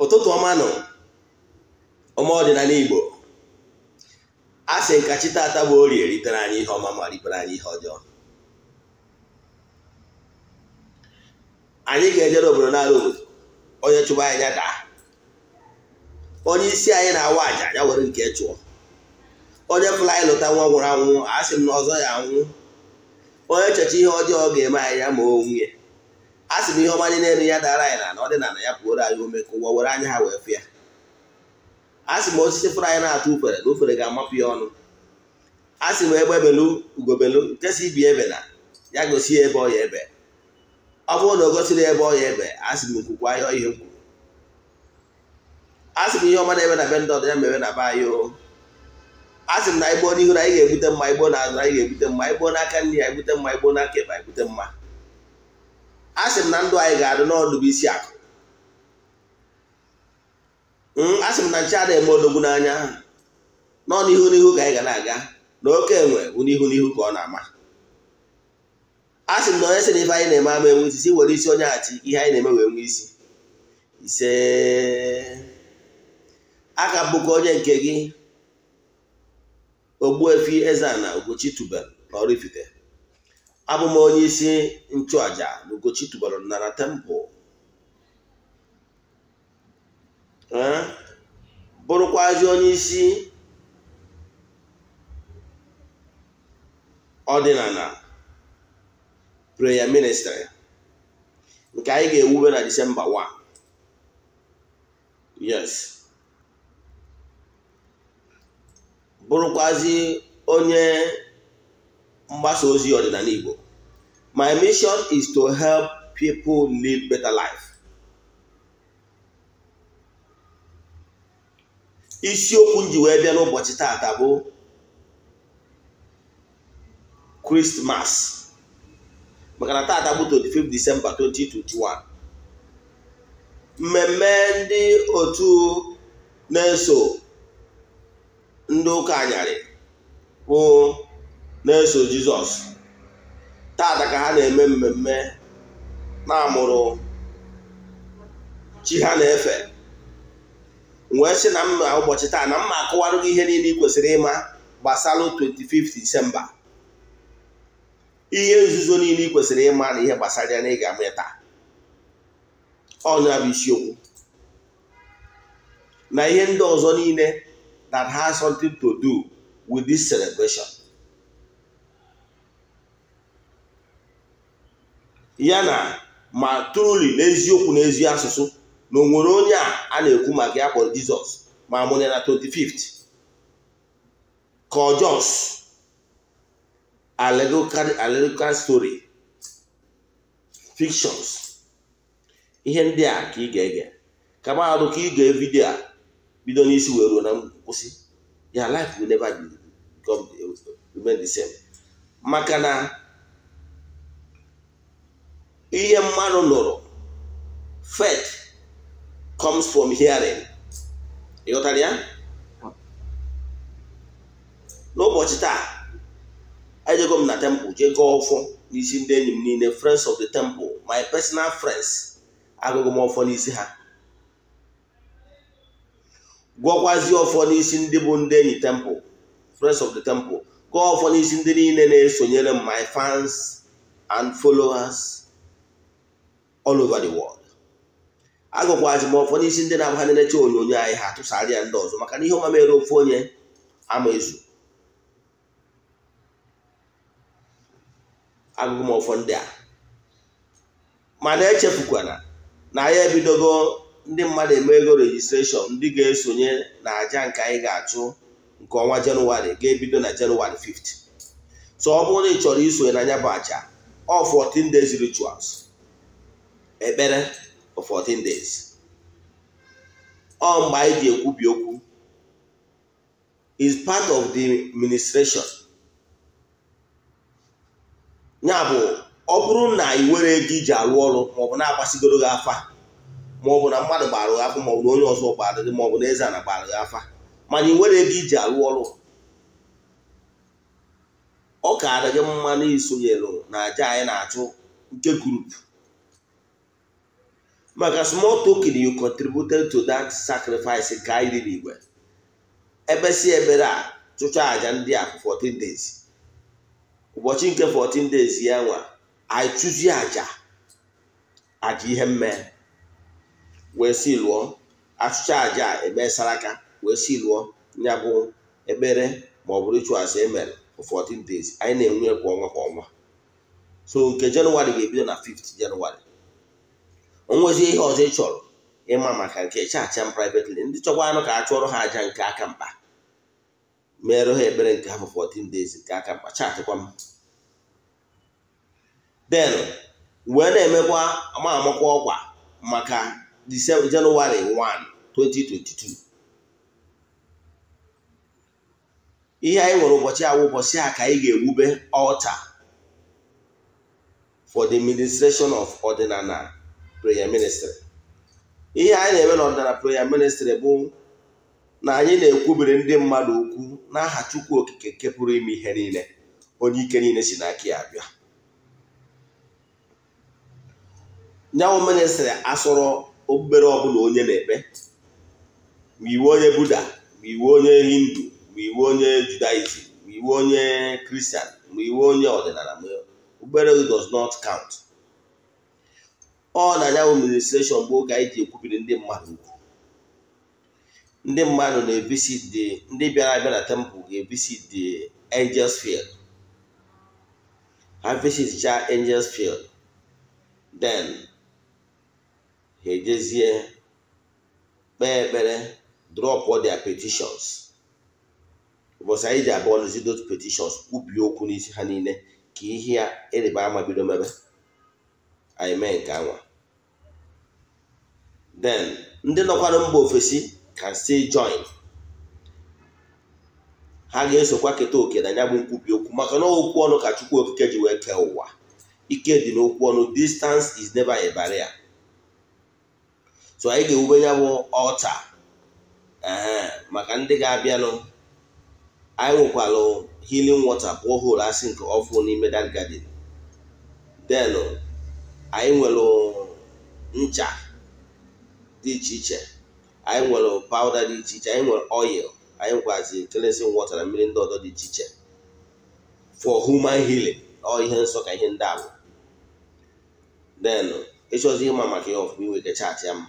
ụtụtụ ọma nọ ọma ọdịnala Igbo a sị nka chi bụ orie ritere anyị ihe ọma ma ritere anyị ihe ọjọọ anyị ga-ejere obodo n'ala obodo onye chụba anyị daa onye isi anyị na-awa aja anya were nke chụọ onye fụla anyị lụta nwa nwụrụ anwụ a sị m na ọzọ ya anwụ onye checha ihe ọjọọ ga-eme anyị ya ma o nwunye a sị m ihe ọma dị n'elu ya dara anyị na na ọdịnala ya pụoro anyị ome ka ụwa were anya ha wee fịa a sị m osisi fụrụ anyị na-atụ ufere na ufere ga-amapụ ya ọnụ a sị m egbe belu ugobelu nke si ibi ebe na ya gosi ya ebe ọ ya ebe ọ bụrụ na o gosiri ebe ọ ya ebe a sị m nkwukwa ya ihe m kwuru a sị m ihe ọma na-eme na be ndị ọdịnya mebe na be anyị o a sị m na igbo n'ihu na anyị ga-ebute mma igbo na azụ anyị ga-ebute mma igbo n'aka nri ya ebute mma igbo n'aka ebe anyị bute mma a sị m na ndụ anyị ga-adị n'ọdụ bụ isi akụ hmm, a sị m na nche adịghị eme odogwu n'anya nọ n'ihu n'ihu ka anyị ga na-aga na oke enwe bụ n'ihu n'ihu ka ọ na-ama a sị m na onye sị na ife anyị na-eme ama enwe isi si were isi onye achị ihe anyị na-eme wee nwee isi ise a ka bụkwa onye nke gị Ogbuefi Eze-Ana Ugochi tubelu na Oraifite abụ m onye isi nchụaja n'ugochi tụbara nara tempụl bụrụkwazi onye isi ọdịnala prayer ministry nke anyị ga-ewube na disemba 1 yes bụrụkwazi onye mgbasa ozi ọdịnala Igbo my mission is to help people live better life isiokwu m ji wee bịa n'ụbọchị taata bụ Christmas maka na taata bụ 25 December 2021 mmemme ndị otu na-eso ndị ụka anyarị bụ na-eso jizọs tata ka ha na-eme mmemme na-amụrụ chi ha na-efe wee sị na mma ụbọchị taa na mma akụwarụ gị ihe niile ị kwesịrị ịma gbasalụ 25 disemba ihe nzuzo niile ị kwesịrị ịma na ihe gbasara ya na ịga ga-ama taa ọnya bụ isiokwu na ihe ndị ọzọ niile that has something to do with this celebration. ya na ma truli n'eziokwu n'ezi asụsụ na onwere onye a na-ekwu maka ya kpọrọ jizọs ma mụnye na 25 th ọ jos story fictions ihe ndị a ka ị ga-ege ka mahadum ka ị ga vidio a bido n'isi wee ruo na nkwụsị ya life will never be the maka na ihe mmadụ nụrụ faith comes from hearing ịghọtara ya n'ụbọchị taa ejego m na temple jee gaa ọfọ n'isi ndị enyi m niile friends of the temple my personal friends agụgụ m ọfọ n'isi ha gwọkwazi ọfọ n'isi ndị bụ ndị enyi temple friends of the temple gaa ọfọ n'isi ndị niile na-esonyere m my fans and followers all over the world Agụkwa m ụfọdụ ndị na-abụ ha na-enecha onyonyo anyị ha tụsara ya ndị ọzọ maka na ihe ọma ofu onye ama ezu agụgụ m ndị a mana echefukwana na anyị ebidogo ndị mmadụ eme ego rejistreshọn ndị ga-esonye na aja nke anyị ga-achụ nke ọnwa jenụwarị ga-ebido na jenụwarị 5 so ọ bụrụ na ị chọrọ isonye na anya bụ aja ọ 14 days rituals ekpere for 14 days ọ mgbe anyị ji ekwubi okwu is part of the ministration ya bụ ọ bụrụ na ị nwere ego iji alụ ọrụ maọbụ na-agbasigoro gị afa maọbụ na mmadụ gbara gị afa maọbụ na onye ọzọ gbara gị maọbụ na eze na gbara gị afa mana ị nwere ego iji alụ ọrụ ọ ka gị mma na isonyere na aja anyị na-achụ nke gurupu maka small token you contributed to that sacrifice nke anyị riri igwe ebesi ebere a chụcha aja ndị a 14 days ụbọchị nke 14 days ya nwa i chụzie aja aja ihe mme wee si lụọ achụcha aja eme saraka wee si lụọ ya bụ ekpere ma ọ bụrụ rituals emere for 14 days anyị na-enwe kwa ọnwa kwa ọnwa so nke jenụwarị ga-ebido na 5th jenụwarị onwezi ihe ọzọ ị chọrọ ịma maka nke chacha m privately ndị chọkwa anụ ka a ha aja nke aka mkpa mere ha ekpere nke afọ 14 days nke aka mkpa chaatịkwa m denụ wee na-emekwa ma ọkwa maka januari 1 2022 ihe anyị nwere ụbọchị awụ ụbọchị a ka anyị ga-ewube ọlta for the administration of ọdịnala prayer ministry ihe anyị na-eme n'ọdịnala prayer ministry bụ na anyị na-ekwubere ndị mmadụ okwu n'aha Chukwu Okike nke pụrụ ime ihe niile onye ike niile si n'aka ya abịa nyanwụ ministrị asọrọ ọ ọbụla onye na-ekpe ma iwu onye buda ma iwu onye hindu ma iwu onye judaism ma iwu onye kristian ma iwu onye ọdịnala obere does not count. ọ na ya ministreshọn bụ oge anyị ji ekwubiri ndị mmadụ ndị mmadụ na visit the ndị bịara abịa na tempụl ga-evisit the angels field ha visitcha angels field then ha ejezie kpee ekpere drop all their petitions ụbọchị anyị ji abụọ n'ezi those petitions kwubie okwu n'isi ha niile ka ihe ya ịrịba e ama bido mebe anyị mee nke anwa then ndị nọkwara mba ofesi can still join ha ga-esokwa keta oke na ya bụ nkwubi okwu maka na okwu ọnụ ka Chukwu Okike ji wee kee ụwa ike dị n'okwu ọnụ distance is never a barrier so anyị ga-ewube ya ọta maka ndị ga-abịanụ anyị nwekwalụ healing water borehole asị nke ọfụ n'ime that garden anyị nwere ncha dị iche iche anyị nwere pawda dị iche iche anyị nwere oil anyị nkwazi cleansing water na mmiri ndị ọzọ dị iche iche for human healing ọ ihe nsọ ka ihe ndị ahụ then ịchọzi ịma maka ihe ọfụma inwe chaatị ya mma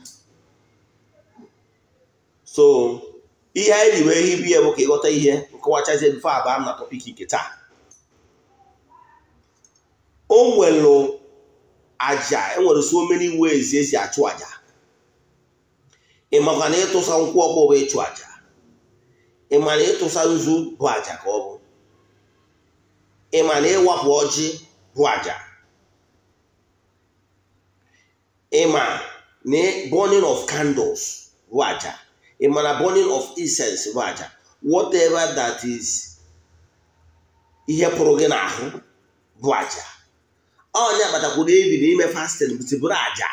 so ihe anyị riwe wee hibu ya bụ ka ịghọta ihe nkọwachazie mfe abụọ na tọpik nke taa o e nwere aja enwere so many ways ezi achụ aja ị na ịtụsa nkwụ ọkpọ bụ ịchụ aja ịma na ịtụsa nzu bụ aja ka ọ bụ ị ma na ịwapụ ọjị bụ aja ị ma na burning of candles bụ aja ị ma na burning of incense bụ aja whatever that is ihe pụrụ gị n'ahụ bụ aja onye agbatakwuru ebi na ime fasting bụtụbụrụ aja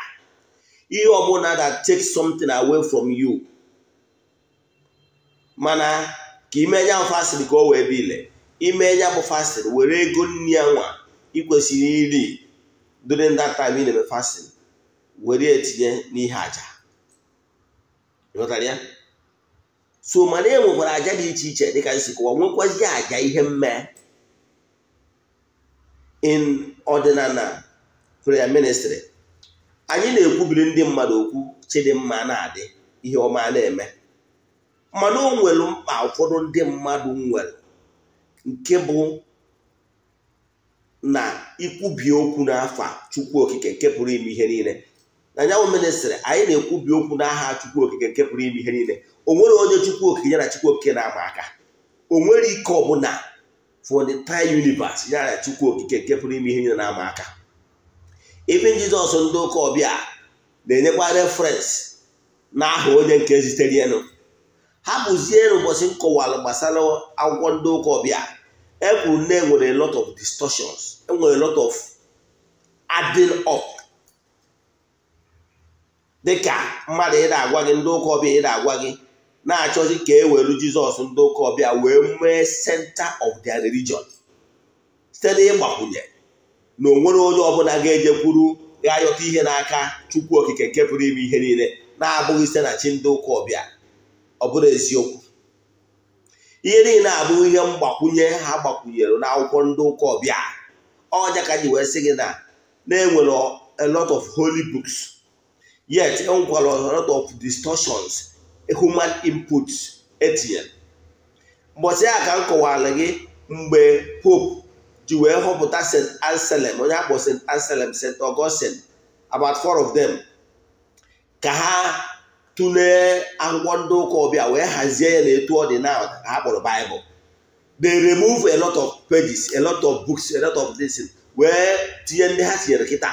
ihe ọbụla that take something away from you mana ka ime ya fasịrị ka o wee ile ime ya bụ fasịrị were ego nri ya nwa ikwesịrị iri during that time ị na-eme were etinye n'ihe aja ya so mana e nwekwara aja dị iche iche dịka isi kụwa nwekwazi aja ihe mme in ọdịnala prayer ministry anyị na-ekwubiri ndị mmadụ okwu chidimma na-adị ihe ọma na-eme mana o nwere mkpa ụfọdụ ndị mmadụ nwere nke bụ na ikwubi okwu n'afa chukwu okike nke pụrụ ime ihe niile na nyanwụ ministrị anyị na-ekwubi okwu n'aha chukwu okike nke pụrụ ime ihe niile o nwere onye chukwu okike ya na chukwu okike na-ama aka o nwere ike ọbụla for the entire universe ya na chukwu okike nke pụrụ ime ihe niile na-ama aka ife jizọs ndị ụka ọbịa na-enyekwa referensị na aha onye nke zitere ha bụzie ụbọchị nkọwalụ gbasara akwụkwọ ndị ụka ọbịa ekwuru na enwere lot of distorsions enwere lot of adding up dịka mmadụ ị na-agwa gị ndị ụka ọbịa ị na-agwa gị na-achọzi ka e welu jizọs ndị ụka ọbịa wee mee senta of their religion site n'ịgbakwunye na onwere onye ọbụla ga-ejekwuru ga-ayọta ihe n'aka chukwu okike nke pụrụ ime ihe niile na-abụghị site na chi ndị ụka ọbịa ọ bụrụ eziokwu ihe niile abụghị ihe mgbakwunye ha gbakwunyere akwụkwọ ndị ụka ọbịa ọja ka ji wee sị gị na na-enwere a lot of holy books yet enwekwara a lot of distortions human inputs etinyere mbọchị a ka m kọwara gị mgbe pope ji wee họpụta st anselm onye akpọ st anselm st augustine about four of them ka ha tụlee akwụkwọ ndị ụka ọbịa wee hazie ya na etu ọ dị na ha kpọrọ baịbụl they remove a lot of pages a lot of books a lot of this wee tinye ndị ha tinyere kịta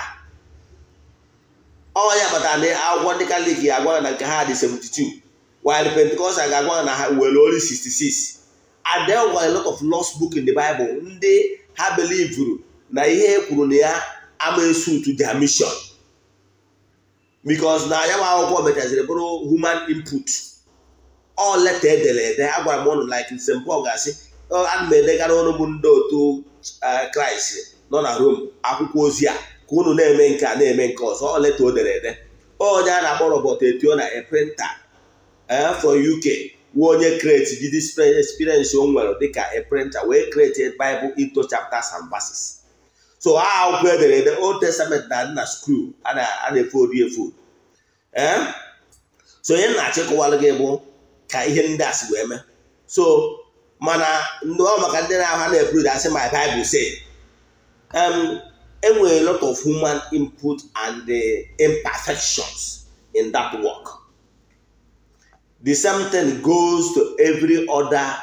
ọ ya kpatara na akwụkwọ ndị kalik ga-agwa na nke ha dị 72 while Pentecostal ga-agwa na ha were only 66 and there were a lot of lost book in the Bible ndị ha belivuru na ihe e kwuru na ya ama esutu their mission because na ya nwa akwụkwọ mechaziri bụrụ human input ọ leta edere ede agwara m ọnụ like St Paul ga-asị ana m edegara ọnụ bụ ndị otu kraịst nọ na Rom akwụkwọ ozi a ka unu na-eme nke a na-eme nke ọzọ ọ leta o dere ede onye a na-akpọ Robert na a printer eh, for UK wụ onye kreti jide experience o nwere dịka a printer wee kreti Bible into chapters and verses so ha akwụkwọ edere ede Old Testament na adị na screw a na-efodu efu. ee eh? so onye na-achịkọwalụ gị bụ ka ihe ndị a si wee so mana ndị ọ maka ndị na-aha na-eburu asị my Bible say enwere e lot of human input and the eh, imperfections in that work. the same thing goes to every other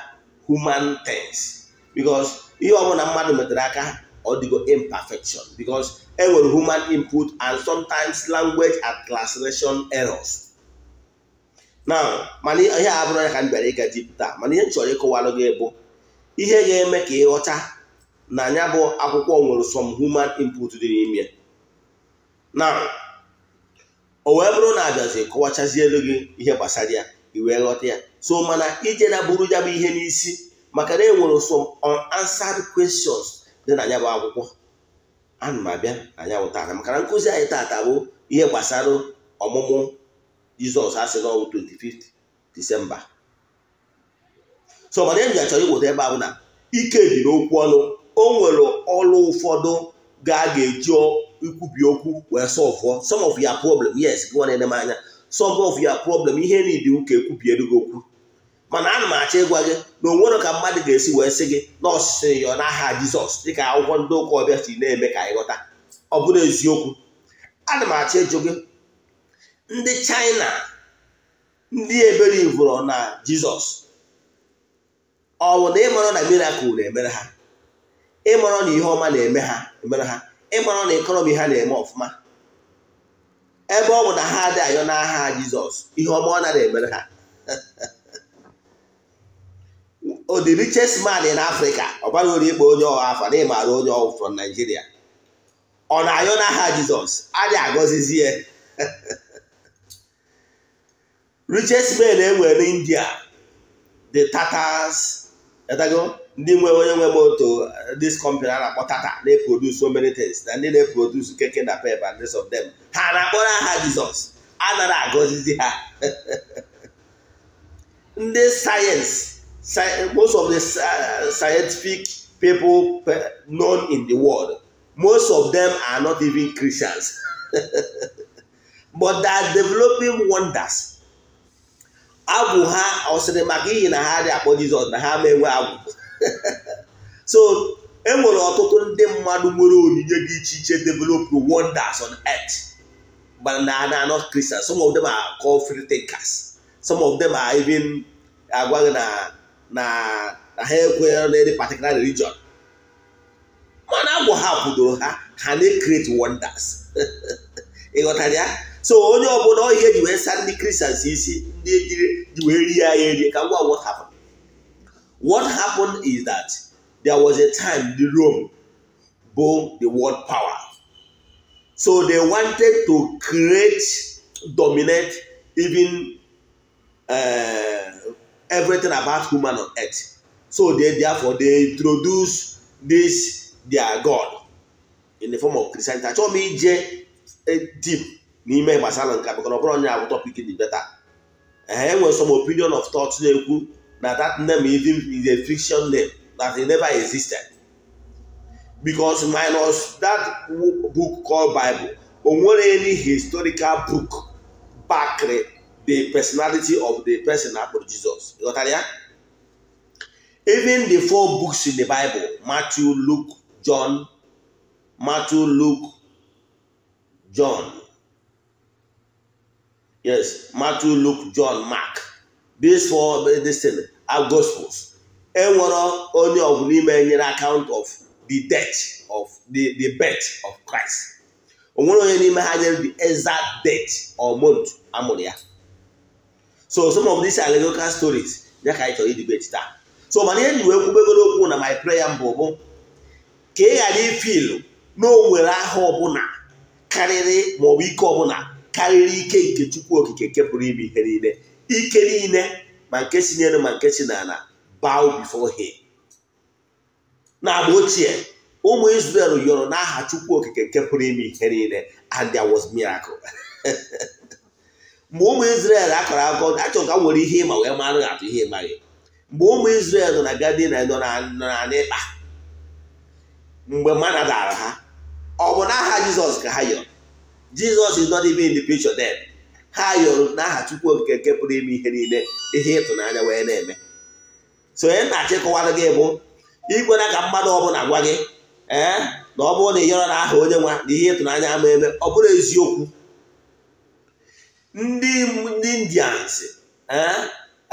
human things because ihe ọbụla mmadụ metara aka ọ dịgo imperfection because e nwere human input and sometimes language and translation errors now mana ihe a bụrụ ya ka m bịara ịga jipụta mana ihe m chọrọ ịkọwalụ gị bụ ihe ga-eme ka ịghọta na anya bụ akwụkwọ nwere some human input dị n'ime now o wee bụrụ na abịazi elu gị ihe gbasara ya wee ghọta ya so mana ije na ya bụ ihe n'isi maka na enwere some unanswered questions dị na anya bụ akwụkwọ ana m abịa na ya maka na nkụzi anyị taata bụ ihe gbasara ọmụmụ Jizọs asị n'ọnwụ 25 Disemba so mana enyi ya chọrọ iweta ebe ahụ na ike dị n'okwu ọnụ o nwere ọrụ ụfọdụ ga ga-eji ikwubi okwu wee sọvụọ some of ya problem yes gị nwa na anya solve of your problem ihe niile ụka ekwubiere gị okwu mana ana m achọ ịgwa gị na onwere ka mmadụ ga-esi wee sị gị na ọsịsị ya n'aha jizọs dịka akwụkwọ ndị ụka ọbịa si na-eme ka anyị ghọta ọ bụrụ eziokwu ana m achọ ịjụ gị ndị chaịna ndị ebere ivụrụ na jizọs ọ bụ na ịmarọ na mirakụl na-emere ha ịmara na ihe ọma na-eme ha emere ha ịmara na ịkọrọm ihe ha na-eme ọfụma ebe ọ bụ na ha adị ayọ n'aha jizọs ihe ọma ọ nara emere ha o the richest man in ori ikpe onye ọha afọ na onye ọhụụ from Nigeria ọ na-ayọ n'aha jizọs adị agọzizi ya richest man enwere India the Tatars ndị nwe onye nwe moto dis company a na-akpọ tata na so many things na ndị na-eprodus keke na pep and rest of them ha na-akpọrọ aha jizọs a nara agọzizi ha ndị sayensị most of the scientific people known in the world most of them are not even christians but they are developing wonders agwụ ha ọ maka ihi na ha dị akpọ jizọs na ha ma enwe agwụ so e nwere ọtụtụ ndị mmadụ nwere onyinye dị iche iche develop wonders on earth but na na not Christian, some of them are called free thinkers some of them are even agwaghị na na na ha ekwenyere any particular religion mana agwọ ha kwudoro ha ha na-create wonders ịghọtara ya so onye ọbụla na ji wee saa ndị Christians isi ndị ejiri ji wee rie ya erie ka ngwa ngwa hapụ What happened is that there was a time the Rome bore the world power. So they wanted to create, dominate even uh, everything about human on earth. So they therefore they introduce this their God in the form of Christianity. Achọrọ m ije e deep n'ime gbasara nke a maka ọ bụrụ onye abụ topic dị beta. Enwere e some opinion of thought na-ekwu na that name even is a fiction name that it never existed because minus that book called Bible onwere any historical book back the personality of the person jesus you Jizọs that ya even the four books in the Bible Matthew Luke John Matthew Luke John yes Matthew Luke John Mark these four this are gospels enwere onye ọgwụ n'ime nyere account of the death of the the birth of Christ onwere onye n'ime ha nyere the exact death or month amụrụ ya so some of these local stories ya ka anyị chọrọ idibeti taa so mana ihe ji kwubegoro okwu na my prayer mbụ bụ ka ị ghara ifil na o nwere aha ọbụla karịrị maọbụ ike ọbụla karịrị ike nke Chukwu Okike nke pụrụ ime ihe niile ike niile ma nke si n'elu ma nke si n'ala bow before him n'agba ochie ụmụ Israel yọrọ n'aha Chukwu okike nke pụrụ ime ihe niile and there was miracle mgbe ụmụ isrel akọrọ akọ achọ ka nwere ihe ịma wee mara atụ ihe ịmaghị mgbe ụmụ isrel nọ na gadin nọ na n'ịkpa mgbe mana dara ha ọ bụ n'aha Jizọs ka ha yọrọ Jizọs is not even in the picture then ha yọrọ n'aha Chukwu Okike nke pụrụ ime ihe niile ihe ịtụnanya wee na-eme so onye na-achịkọwara gị bụ ikwena ka mmadụ ọbụla gwa gị ee na ọ bụrụ na ị yọrọ na aha onye nwa na ihe ịtụnanya ama eme ọ bụrụ eziokwu ndị indians eh,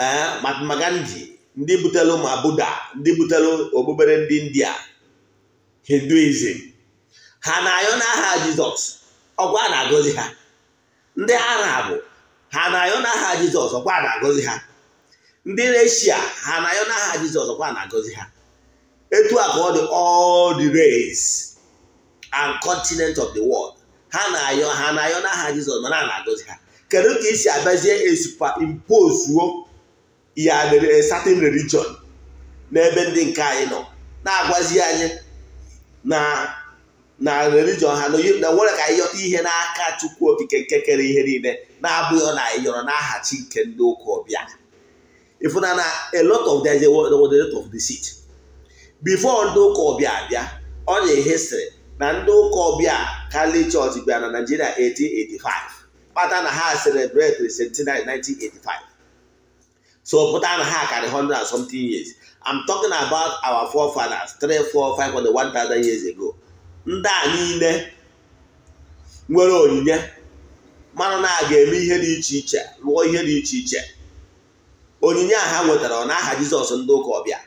eh, Mahatma Gandhi ndị butelu ma Buddha ndị butelu okpukpere ndị india hinduism ha na-ayọ n'aha Jizọs ọkwa na-agọzi ha ndị arab ha na-ayọ n'aha jizọs ọkwa na-agọzi ha ndị reshia ha na-ayọ n'aha jizọs ọkwa na-agọzi ha etu a ka ọ dị all the race and continent of the world ha na-ayọ ha na-ayọ n'aha jizọs mana na-agọzi ha kedu ka isi abịazie impozuo ya eh, certain religion n'ebe ndị nke anyị nọ na-agwazi anyị na na religion ha na nwere ka anyị ihe n'aka chukwu okike nke kere ihe niile na-abụghị na anyị yọrọ n'aha chi nke ndị ụka ọbịa ịfụna na a lot of them of the seat before ndị ụka ọbịa abịa ọ na-ehesịrị na ndị ụka ọbịa kali chọọchị bịa na naijiria 1885 kpata na ha celebrate centenary 1985 so pụta na ha karị 100 and something years I'm talking about our forefathers three, 3 4 5 one thousand years ago ndị a niile nwere onyinye mmanụ na aga ga-eme ihe dị iche iche lụọ ihe dị iche iche onyinye a ha nwetara ọ na-aha jizọs ndị ụka ọbịa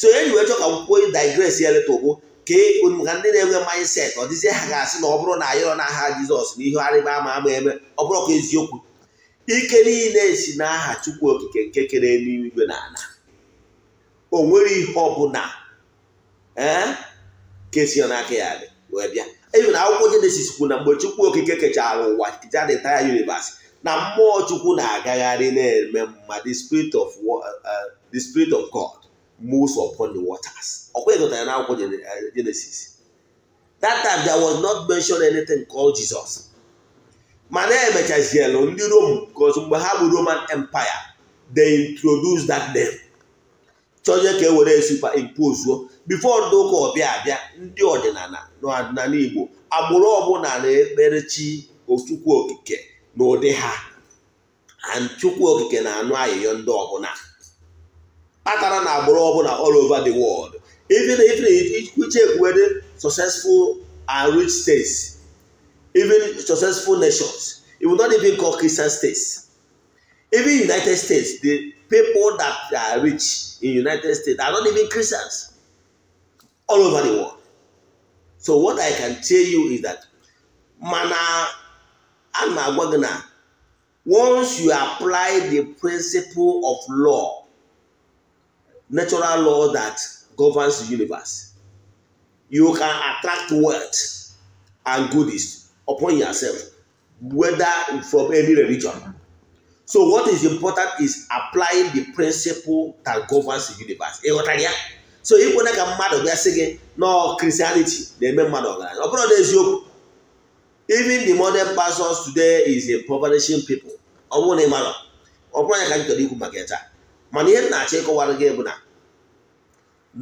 so enyi wee chọọ ka akwụkwọ digres ya letogbo ka maka e, ndị na-enwe mindset ọ dịzie ha ga-asị na ọ bụrụ na na-aha jizọs na ihe arịba ama ama eme ọ bụrụ ka eziokwu ike niile si n'aha chukwu okike nke kere n'igwe na ala o nwere ihe ọbụla ee eh, ka esi n'aka ya dị wee bịa even akwụkwọ jenesis kwu na mgbe chukwu okike kechara ụwa kecha the entire universe na mmụọ chukwu na-agagharị na-eme mma the spirit of uh, the spirit of god moves upon the waters ọkwa ịgụtara na akwụkwọ jenesis uh, that time there was not mentioned anything called jesus mana emechazielu ndị rome because mgbe ha bụ roman empire they introduced that name chọnye ka e were superimpose bifo ndị ụka ọbịa abịa ndị ọdịnala n'ọdịnala Igbo agbụrụ ọbụla na-ekpere chi Chukwu Okike na ụdị ha Chukwu Okike na-anụ ayịyọ ndị ọbụla kpatara na agbụrụ ọbụla all over the world even if iche kwuwede successful and rich states even successful nations even not even called Christian states even United States the people that are rich in United States are not even Christians all over the world. So what I can tell you is that mana and magwagana, once you apply the principle of law, natural law that governs the universe, you can attract wealth and goodies upon yourself, whether from any religion. So what is important is applying the principle that governs the universe. so ikwena ka mmadụ bịa sị gị nọ Christianity na-eme mmadụ ọgaranya ọ bụrụ na eziokwu even the modern pastors today is a impoverishing people ọ bụrụ na ị mara ọ bụrụ anya ka m ikwu maka taa mana ihe m na-achọ ịkọwara gị bụ na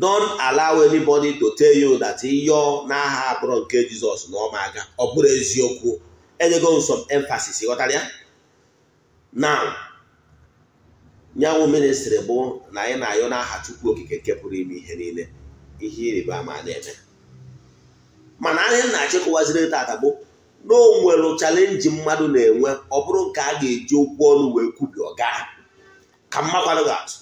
don't allow anybody to tell you that yọ n'aha abụrụ nke Jizọs na ọma ma aga ọ bụrụ eziokwu enyego m some emphasis ghọtara ya now nyanwụ ministri bụ na anyị na-ayọ n'aha Chukwu okike nke pụrụ ime ihe niile ihe ịrịba ama na-eme mana anyị na-achịkọwaziri tata bụ na o nwere chalenji mmadụ na-enwe ọ bụrụ nke a ga-eji okwu ọnụ wee kwubi ọga ka mmakwadụ ga-atụ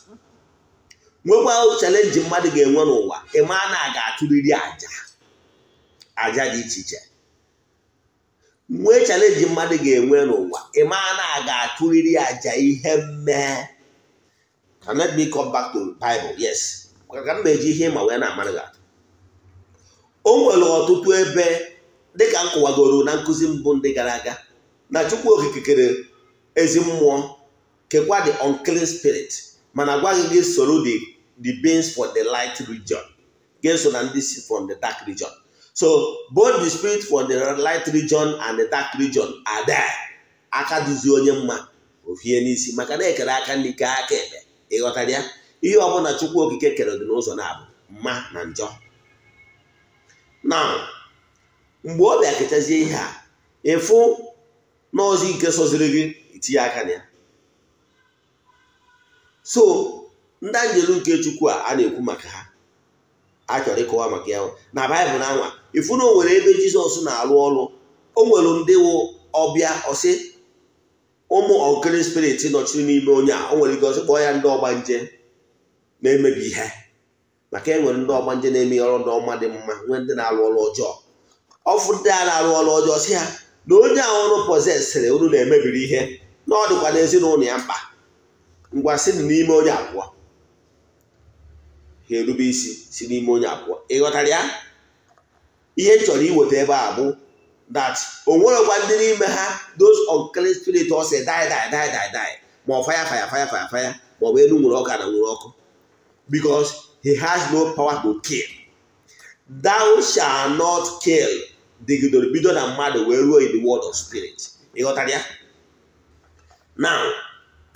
nwekwa chalenji mmadụ ga-enwe n'ụwa ịma na a ga-atụrịrị aja aja dị iche iche nwee chalenji mmadụ ga-enwe n'ụwa ịma na a ga-atụrịrị aja ihe mmee can let me come back to Bible yes ka m na-eji ihe ma wee na-amarị gị o nwere ọtụtụ ebe dịka m kụwagoro na nkụzi mbụ ndị gara aga na Chukwu Okike kere ezi mmụọ kekwa the unclean spirit mana gwaghị gị soro the the beings for the light region gị so na ndị si from the dark region so both the spirit for the light region and the dark region are there aka duzie onye mma ofie n'isi maka na ekere aka n'ike aka ebe ịghọtara ya ihe ọ ọbụla chukwu okike kere dị n'ụzọ na-abụ mma na njọ na mgbe ọ bịa kechazie ihe a ịfụ n'ọzọ ike soziri gị itinye aka na ya so ndị anjelu nke chukwu a na-ekwu maka ha a chọrọ ịkọwa maka ya na baịbụl na anwa ịfụ na o nwere ebe jizọs na-alụ ọrụ o nwere ndị wụ ọbịa ọsị ụmụ ọkịrị spirit nọchiri n'ime onye a o nwere ike ọzọ kpọọ ya ndị ọgbanje na-emebi ihe maka e nwere ndị ọgbanje na-eme ọrụ ndị ọma dị mma nwee ndị na-arụ ọrụ ọjọọ ọfụ ndị a na-arụ ọrụ ọjọọ si ha na onye ahụ ọrụ pọzesịrị unu na-emebiri ihe na ọ dịkwa n'ezinụlọ ya mkpa ngwa si n'ime onye abụọ ha erube isi si n'ime onye abụọ ị ghọtara ya ihe chọrọ iweta ebe a bụ that o nwerekwa ndị n'ime ha those unclean spirit ọsị die die die die die ma ọ fire fire fire fire fire ma ọ bụ elu nwere ọka na nwere ọkụ because he has no power to kill thou shall not kill dịgidoro bido na mmadụ wee ruo in the world of spirit ịghọtara ya now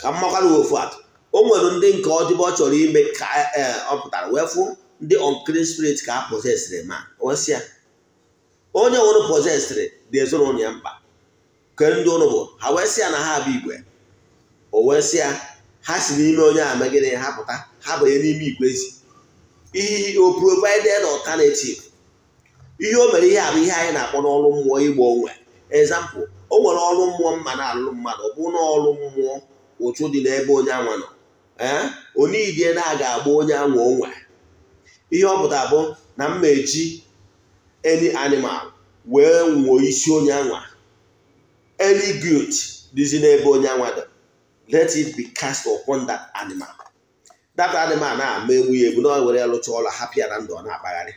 ka mmakwara ofu atụ o nwere ndị nke ọdịbe ọ chọrọ ime ka eh, ọ pụtara wee fụ ndị unclean spirit ka a possesịrị ma wesịa onye ụnụ pọzesịrị dị ezinụlọ ya mkpa ke ndị ụlọ bụ ha wee ya na ha abụ igwe o wee ya ha si n'ime onye a megịrị ha pụta ha banye n'ime igwe ezi ihe o provided alternative ihe o mere ihe a bụ ihe anyị na-akpọ n'ọrụ mmụọ igbo onwe ezampụ o nwere ọrụ mmụọ mma na-alụ mmadụ ọ bụ n'ọrụ mmụọ ụtụ dị n'ebe onye anwa nọ ee eh? idie na-aga agba onye anwa onwe ihe ọ pụta bụ na mma eji any animal wee nwụọ isi onye anwa any guilt dịzi n'ebe onye anwa dị let it be cast upon that animal that animal na-ama egbu ya egbu na ọ were lụcha ọla hapụ ya na ndụ ọ na-akpagharị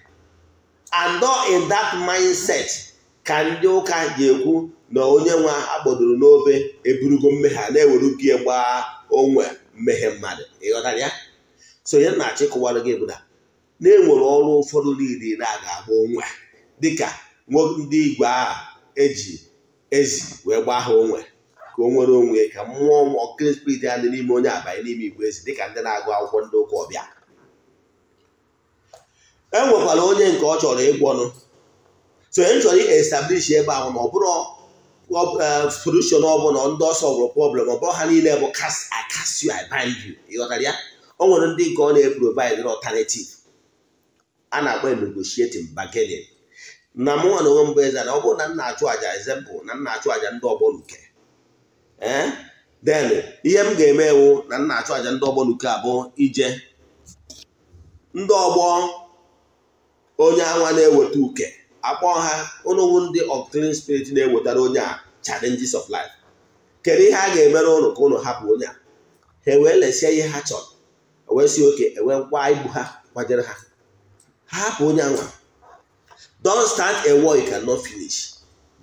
and in that mindset ka ndị ụka ga-ekwu na onye nwa akpọdoro n'obe eburugo mmehie a na-ewerugie gbaa onwe mmehie mmadụ ịghọtara ya so ihe na-achọ ịkụwara gị bụ na enwere ọrụ ụfọdụ niile na ga-agba onwe dịka ndị igwe a eji ezi wee gbaa ha onwe ka o nwere onwe ka mmụọ ọkụkọ spirit ya dị n'ime onye abanye n'ime igwe ezi dịka ndị na-agụ akwụkwọ ndị ụka ọbịa e nwekwara onye nke ọ chọrọ ịgwọ ọnụ so e chọrọ establish ebe ahụ ma ọ bụrụ e, solution ọbụla ndị ọsọ bụrụ problem ọ bụrụ ha niile bụ kas I cast you I you ịghọtara ya o nwere ndị nke ọ na-eprovide alternative a na-akpọ negotiating bargaining na mụ nwa na onwe mbụ eze na ọ bụrụ na m na-achụ àjà ezempụ na m na-achụ àjà ndị ọgbọ n'uke ee eh? den ihe m ga-eme ewu na m na-achụ àjà ndị ọgbọ n'uke abụ ije ndị ọgbọ onye anwa na-eweta uke akpọ ha ụnụwụ ndị unclean spirit na-ewetara onye a challenges of life kedu ihe a ga-emere ụnụ ka ụnụ hapụ onye a ha ewee lesie ihe ha chọrọ wee si oke ewee igbu ha kwajere ha hapụ onye anwa don start a war you cannot finish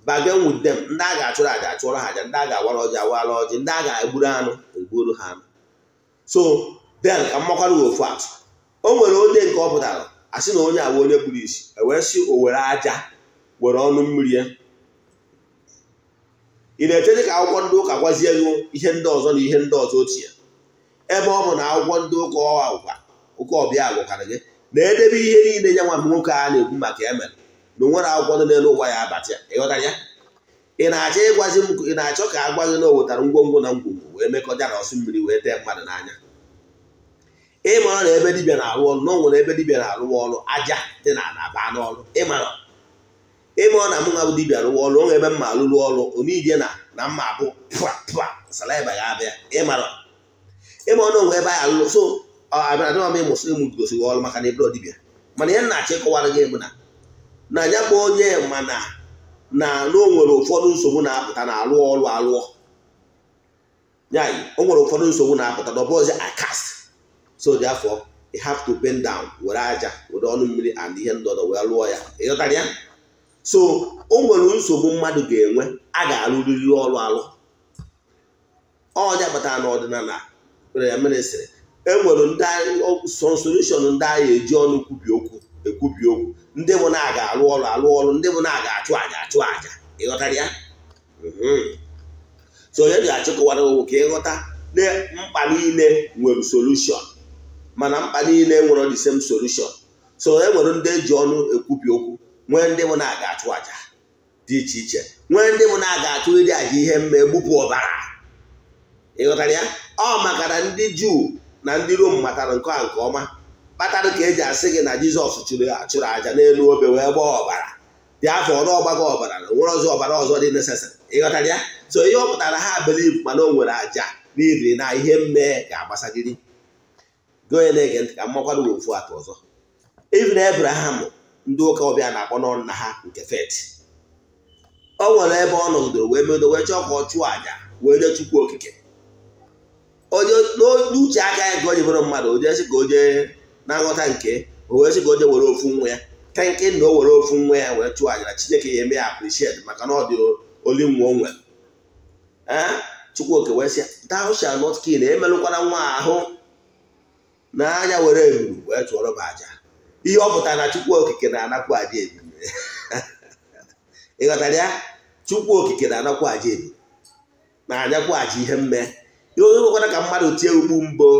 bargain with them ndị a ga-achụrụ aja achụọrọ ha aja ndị a ga-awara ọjị awara ọjị ndị a ga-egburu anụ egburu ha anụ so then ka mmakwara ofu atụ o nwere onye nke ọ pụtara asị na onye agwa onye kpuru isi ewee owere o were aja were ọnụ mmiri ya ị na-eche dị ka akwụkwọ ndị ụka gwazie gị ihe ndị ọzọ na ihe ndị ọzọ otu ya ebe ọ bụ na akwụkwọ ndị ụka ụka ọbịa gwakara gị na edebe ihe niile ya nwa nwoke a na-ekwu maka emere na onwere akwụkwọ dị n'elu ụwa ya abata ya ịghọtara ya ị na-achọ ịgwazi m ị na-achọ ka a gwa na o wetara ngwongwo na ngwongwo wee mekọta na ọsụ mmiri wee tee mmadụ n'anya ịmara na ebe dibia na-arụ ọrụ na o ebe dibia na-arụ ọrụ aja dị na anaba n'ọrụ ịmara ịmara na mụ nwa bụ dibịa rụwa ọrụ onwe ebe mma arụrụ ọrụ onidie na na mma abụ pụa pụa salaiba ya abịa ịmara ịmara na onwe ebe anyị alụrụ so abịara dịma m ịmụsụ ịmụ gosiri ọrụ maka na ebro dibịa mana ihe m na-achọ ịkọwara gị bụ na na ya bụ onye mana na na o nwere ụfọdụ nsogbu na-apụta na alụ ọrụ alụọ o nwere ụfọdụ nsogbu na-apụta na ọbụzi akas so therefore afọ have to bend down were aja were ọnụ mmiri and ihe ndọdọ wee lụọ ya ịghọtara ya so o nwere nsogbu mmadụ ga-enwe a ga-alụrịrị ọrụ alụ ọja batara na ọdịnala ya mere sịrị e nwere ndị solushọn ndị agha eji ọnụ kwubi okwu ekwubi okwu ndị mụ na aga alụ ọrụ alụ ọrụ ndị mụ na aga achụ aja achụ aja ịghọtara ya mm-hmm. so onye ga-achịkọwara owu ka ịghọta na mkpa niile nwere solushọn mana mkpa niile nwere the same solushọn so e nwere ndị ji ọnụ ekwubi okwu nwee ndị mụ na aga achụ aja dị iche iche nwee ndị mụ na aga achụ ịdị aja ihe mma egbupụ ọbara ịghọtara ya ọ makara ndị juu na ndị rom matara nke a nke ọma kpatara ka eji asị gị na jizọs chụrụ achụrụ àjà n'elu obe wee gbaa ọbara dị afọ ọrụ ọgbago ọbara na nwere ọzọ ọbara ọzọ dị nesesịrị ịghọtara ya so ihe ọ pụtara ha beliv mana o nwere aja n'iri na ihe mmehie ga-agbasagiri goye na-ege ntị ka mmakwadụ nwere ofu atọ ọzọ ivin abraham ndị ụka ọbịa na-akpọ n'ọnụ na ha nke fet o nwere ebe ọ nọgidoro wee medo wee chọọ ka ọ chụọ aja wee nye chukwu okike onye n'uche aka ya ka o mmadụ o jesi ka o jee na-aghọta nke o wee sị ka o were ofu nwa ya ka nke na o were ofu nwa ya wee chụọ na Chineke ya eme ya appreciate maka na ọ dị oli nwa o nwere Chukwuoke wee sị thou not kill emelụkwara nwa ahụ n'anya were eburu wee chụọrọ m aja ihe ọ pụtara na Chukwu Okike na-anapụ aja ebi ịghọtara ya Chukwu Okike na-anapụ aja ebi na-anyakwu aja ihe mme ihe onye nwekwara ka mmadụ tie ugbu mbụ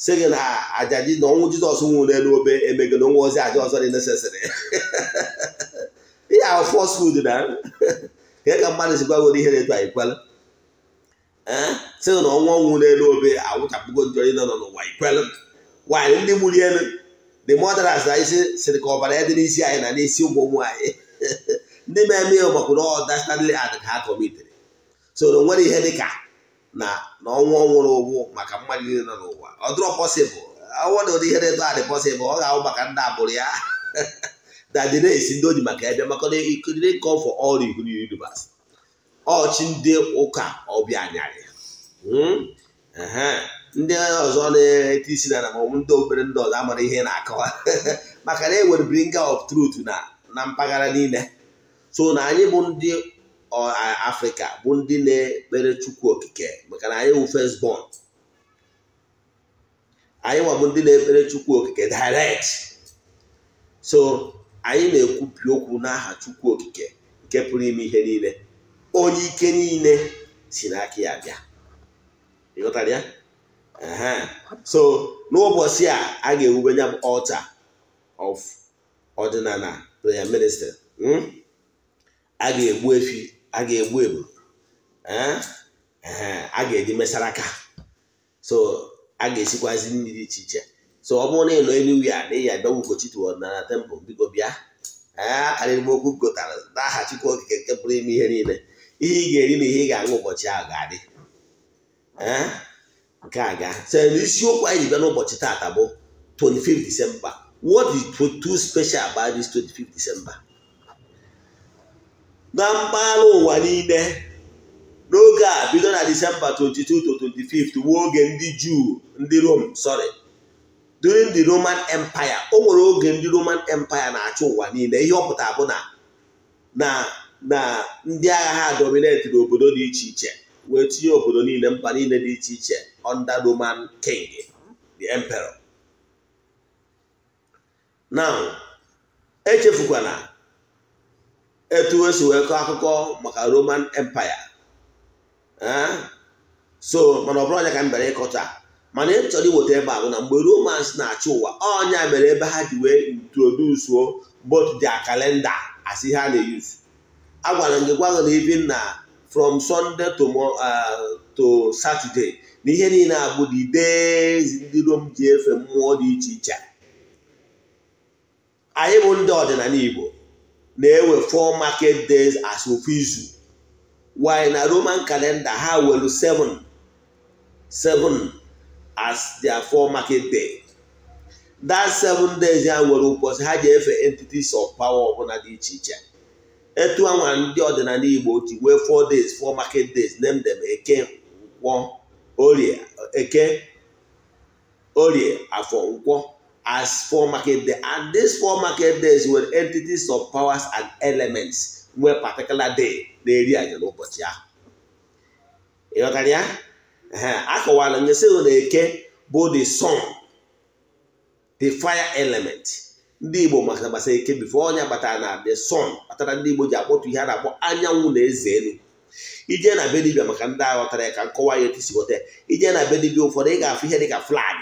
si gị na aja na ọnwụ jizọs nwụrụ n'elu obe emegịna nwa ozi aja ọzọ dị nesesịrị ihe ahụ fọs fud na ka e ka mmadụ si gwagoro ihe na-eto anyị kwela eh? sị na ọnwụ n'elu obe awụchapụgo njọ ị nọ n'ụwa ikwela nwaanyị ndị mụrụ elu dị mọdras na isi sịrị ka ọbara ya dị n'isi anyị na n'isi ụmụ nwaanyị ndị ma-eme ya makwụrụ ọda standard ad ka ha kọmitere nwere ihe dị ka na na ọnwụ ọnwụrụ ụgwụ maka mmadụ niile nọ n'ụwa ọ dịrọ pọsịbụl awụọ na ụdị ihe na-eto adị pọsịbụl ọ ga-awụ maka ndị abụrụ ya dadị na-esi ndị oji maka ebe maka ikiriri nke ọfọ ọrụ ihu univers ọchị ndị ụka ọbịa anyarị hmm? ndị ọzọ na-eti isi na namọnwụ ndị obere ndị ọzọ amara ihe na-akọwa maka na e nwere bringer of truth na na mpaghara niile so na anyị bụ ndị afrịka bụ ndị na-ekpere chukwu okike maka na anyị first born anyị nwabụ ndị na-ekpere chukwu okike direct so anyị na-ekwupi okwu n'aha chukwu okike nke pụrụ ime ihe niile onye ike niile si n'aka ya bịa ịghọtara ya so n'ụbọchị a a ga-ewube ya bụ altar of ọdịnala prayer minister hmm? a ga-egbu efi a ga-egbu egbu a ga-eji mesara aka so a ga-esikwazi nri dị iche iche so ọ bụrụ na ịnọ elu ya na ịya dọgbu ugochitụ ọdịnala tempụl biko bịa akarịrị okwu gotara n'aha chukwu okike nke pụrụ ime ihe niile ihe ị ga-eri na ihe ị ga-aṅụ ụbọchị ahụ ga-adị nke a ga so isiokwu anyị bịa n'ụbọchị taata bụ 25 December what is too special about this 25 December na mpaghara ụwa niile n'oge a bido na disemba 22 to 25 wuo oge ndị juu ndị rom sorry during the roman empire o nwere oge ndị roman empire na achụ ụwa niile ihe ọ pụtara bụ na na na ndị agha ha dominetiri obodo dị iche iche wee tinye obodo niile mba niile dị iche iche under roman king the emperor now etu esi wee kọọ akụkọ maka roman empire eh? so mana ọ bụrụ ka m bịara ịkọta mana ị chọrọ iweta ebe a bụ na mgbe romans na-achị ụwa ọnya mere ebe ha ji wee introdusuo both dia kalenda as ihe a na-eyuzu agwara m gị gwagha na ibi na from sunday to eh, to saturday na ihe niile abụ dị dezi ndị rom ji efe mmụọ dị iche iche anyị bụ ndị ọdịnala igbo na-ewe four market days as of izu while na roman calendar ha welu seven seven as their four market day that seven days ya nwere ụbọchị ha ji efe entities of power ọbụla dị iche iche etu anwa ndị ọdịnala igbo ji wee four days four market days name dem eke nkwọ orie eke orie afọ nkwọ as four market day. And these four market days were entities of powers and elements were particular day na-eri anyị n'ụbọchị ahụ. ghọtara ya? A kọwara nye na eke bụ the sun, the fire element. Ndị Igbo maka gbasa eke bifo onye batara na the sun kpatara ndị Igbo ji akpọtụ ihe a na-akpọ anyanwụ na eze elu. Ije na be dibịa maka ndị aghọtara ya ka nkọwa ya etu si ghọta ya. Ije na be dibịa ụfọdụ ị ga-afụ ihe dị ka flag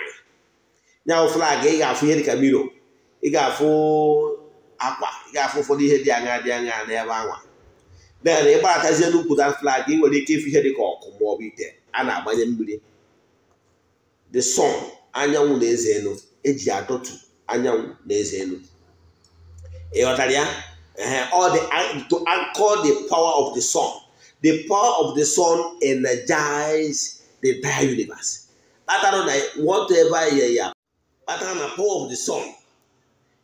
nyanwụ flagị ị ga-afụ ihe dịka miro ị ga-afụ akwa ị ga-afụ ụfọdụ ihe dị aṅa dị aṅa n'ebe anwa bee na ịgbaratazie n'ukwuta flagị ị nwere ike ịfụ ihe dịka ọkụ ma ọ bụ ite a na-agbanye mmiri the sun anyanwụ na eze elu eji adọtụ anyanwụ na eze elu ị ghọtara ya uh-huh. all the to anchor the power of the sun the power of the sun energize the entire universe atarụ na whatever ya ya kpatara na power of the sun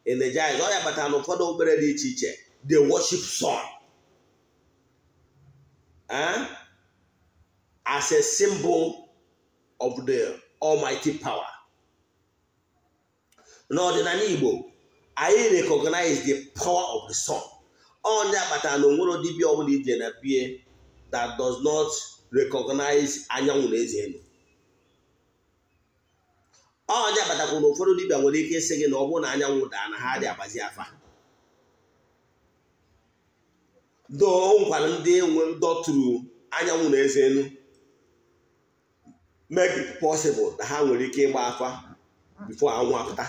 jazz, ọ ya kpatara na ụfọdụ obere dị iche iche the worship sun ah? as a symbol of the almighty power n'ọdịnala Igbo anyị recognize the power of the sun onye akpatara na onwere dibịa ọbụla ije na bie that does not recognize anyanwụ na eze ọja batakwu na ụfọdụ dibịa nwere ike ịsị gị na ọ bụrụ na anyanwụ daa na ha dị agbazi afa doo nkwara ndị nwe ndọtụrụ anyanwụ na eze elu make it possible na ha nwere ike ịgba afa bifo anwụ apụta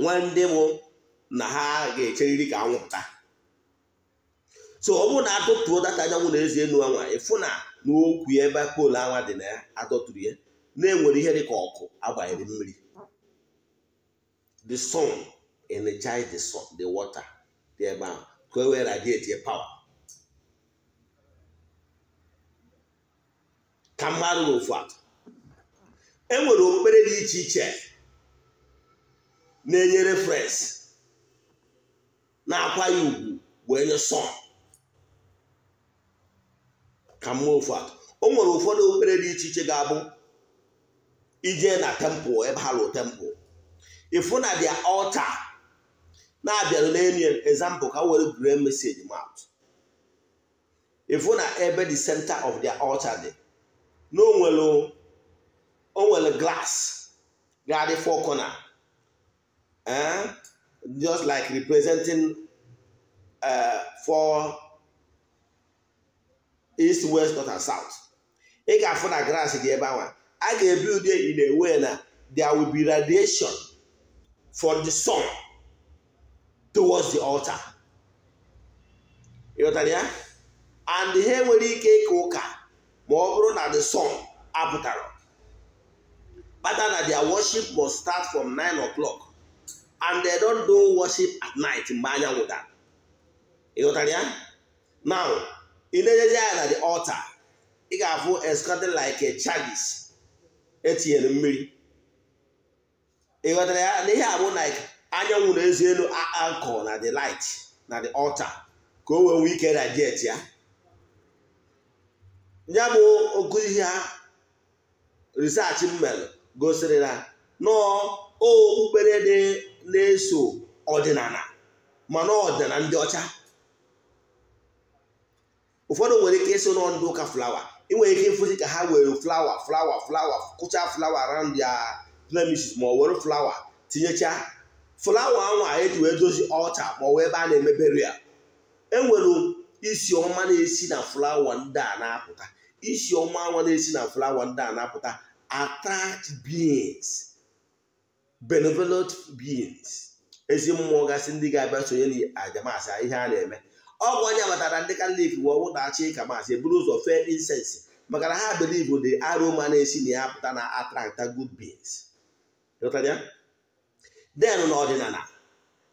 nwa ndị bụ na ha ga-echeriri ka anwụ pụta so ọ bụrụ na adọtụrụ data anyanwụ na eze elu anwa ịfụ na n'okwu ebe poolu anwa dị na ya adọtụrụ ya na-enwere ihe dị ka ọkụ agbanyere mmiri the sun energize the sun the water dị ebe ahụ ka e wee radiate power ka mmadụ n'ofu e nwere okpukpere dị iche iche na enyere referensị na-akwa ya ugwu wee nye sọn ka mma ofu o nwere ụfọdụ okpere dị iche iche ga-abụ Ije na temple ebe ha lụ temple ifu na dia ọlta na-abịarụ n'elu example ka were gree meseji mat ifu na ebe the center of their altar dị na o nwere glass ga-adị four corner eh? just like representing uh, four east west north and south ị ga-afụ na glass dị ebe ahụ I ga build it in a way na there will be radiation for the sun towards the altar. ịghọtara ya and ha nwere ike ịka ụka ma ọ bụrụ na the sun apụtara kpata na their worship must start from 9 o'clock and they don't do worship at night mgbe anyanwụ dara ịghọtara ya now ị na na the altar ị ga-afụ escorted like a chalice etinyere mmiri ịghọtara ya na ihe a bụ anyanwụ na ezi elu nkụ na the light na the altar ka o wee nwee ike radiate ya ya bụ oku ihe research m gosiri na nọọ okpukpere dị na-eso ọdịnala na ọdịnala ndị ọcha ụfọdụ nwere ike ịso nọ ndị ụka flawa ị nwere ike ịfụzi ka ha were flawa flawa flawa kụcha flawa around ya premises ma ọ were flawa tinyechaa flawa ahụ eji wee dozi ọcha ma ọ wee ebe a na-emebere ya enwere isi ọma na-esi na flawa ndị a na-apụta isi ọma ahụ na-esi na flawa ndị a na-apụta attract beings benevolent beings ezi mmụọ gasị ndị ga-abịa sonye na ajamasị ihe a na-eme ọgwụ onye matara ndị kalif wụ ọnwụ na-achị ịka maasị eburu ụzọ fee incense maka na ha believe the aroma na-esi na ya pụta na attracta good beings den n'ọdịnala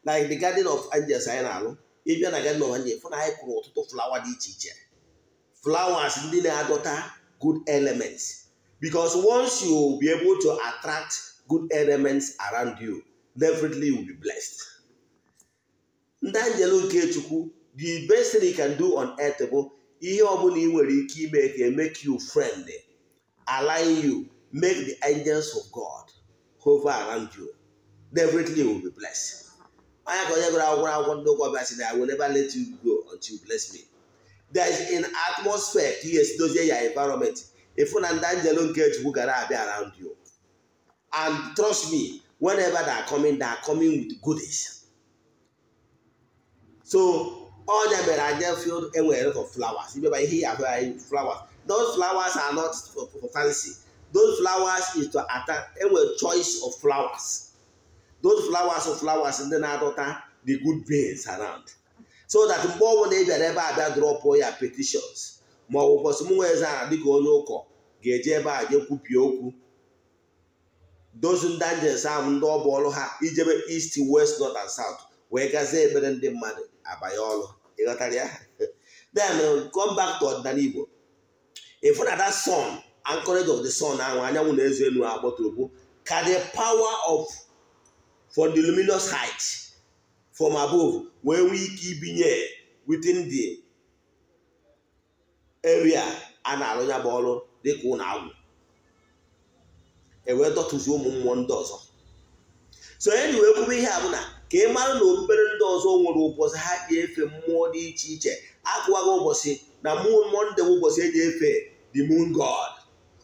like the garden of angels anyị na-alụ ịbịa na garden of angels fụ na anyị kụrụ ọtụtụ flawa dị iche iche Flawas ndị na-adọta good elements bicos once you be able to attract good elements around you definitely you will be blessed ndị anjelu nke chukwu the best thing you can do on earth bụ ihe ọbụla ị nwere ike ime ka e make you friendly align you make the angels of God hover around you definitely you will be blessed anya ka onye gụrụ akwụkwọ akwụkwọ ndị ụkwa bịa sị I will never let you go until you bless me there is an atmosphere ka ihe dozie ya environment ịfụ na ndị angelo nke chukwu gara abịa around you and trust me whenever they are coming they are coming with goodies so ọ nyabere anya field enwere lot of flowers imeba ihe ya ahụ anyị flowers those flowers are not for, for fancy those flowers is to attack enwere choice of flowers those flowers of flowers ndị na-adọta the good beings around so that mgbe bụla ị bịara ebe a bịa drop ya petitions ma ọ bụ kwọsị m nwee zara dịka onye ụkọ ga eje ebe a jekwupie okwu those dangers ahụ ndị ọ bụ ọrụ ha ijebe east west north and south wee gazie ebere ndị mmadụ abanye ọrụ ịghọtara ya then uh, come back to ọdịnala Igbo ịfụ na that sun and of the sun ahụ anyanwụ na-ezo elu agbaturubu ka the power of for the luminous height from above wee nwee ike ibinye within the area a na-arụ ya bụ ọrụ dịka ụlọ agwụ ewee dọtụzi ụmụ mmụọ ndị ọzọ so enyi wee kwube ihe na ka ị mara na obere ndị ọzọ nwere ụbọchị ha ji efe mmụọ dị iche iche akụwago ụbọchị na moon monde ụbọchị eji efe the moon god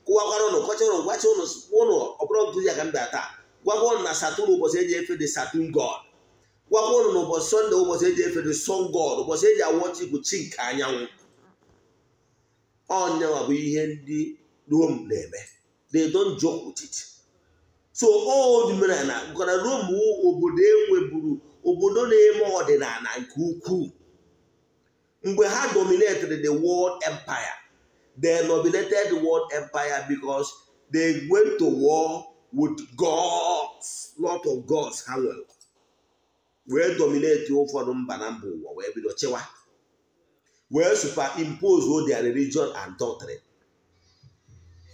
kụwakwara ụnụ kọchara ụnụ gwachi ụnụ ụnụ ọbụrụ ntụzi aka mba taa gwakwa ụnụ na saturn ụbọchị eji efe god ụnụ na ụbọchị sọnde ụbọchị eji efe the sun ụbọchị eji anyanwụ ọnyanwa ihe ndị rom na-eme they so odmenala gwara Rome obodo enweburu obodo na-eme ọdịnala nke ukwuu mgbe ha dominated the world empire they dominated the world empire because they went to war with gods lot of gods ha nwere wee dominate ụfọdụ mba na mba ụwa wee bido chewa wee superimpose their religion and doctrine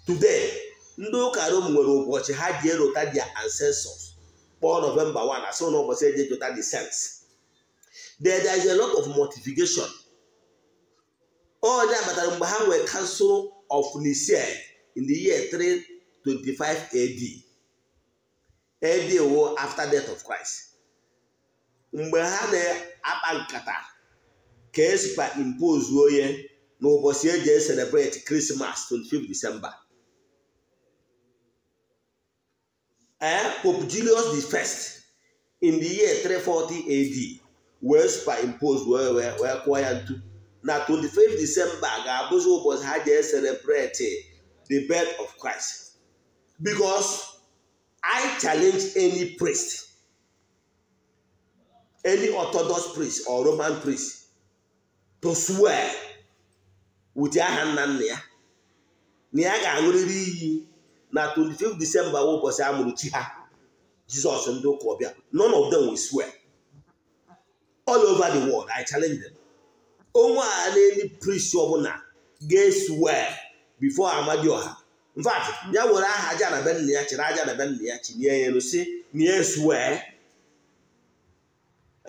today ndị ụka rom nwere ụbọchị ha ji erota dia ancestors kpọọ nọvemba 1 asị na ụbọchị eji ejota the sense there is a lot of mortification onye abatara mgbe ha nwere council of Nicaea in the year 325 AD AD wo after death of Christ mgbe ha na-akpa nkata ka esikwa impose onye n'ụbọchị eji celebrate Christmas 25 December Eh? Pope Julius the first in the year 340 AD wee superimposed wee wee wee kụọ ya ntu na 25 December ga-abụzi ụbọchị ha ji celebrate the birth of Christ because I challenge any priest any Orthodox priest or Roman priest to swear with aha nna nna ya na ya ga-aṅụrịrị iyi na 25 disemba ụbọchị a mụrụ chi ha jizọs ndị ụka ọbịa none of them we swear all over the world i challenge them onwe a na eme priest ọbụla ga-eswear before amadi ọha fact ya nwere aha aja na be nna ya chịrị aja na be nna ya chinye ya elu si eh? na ya swear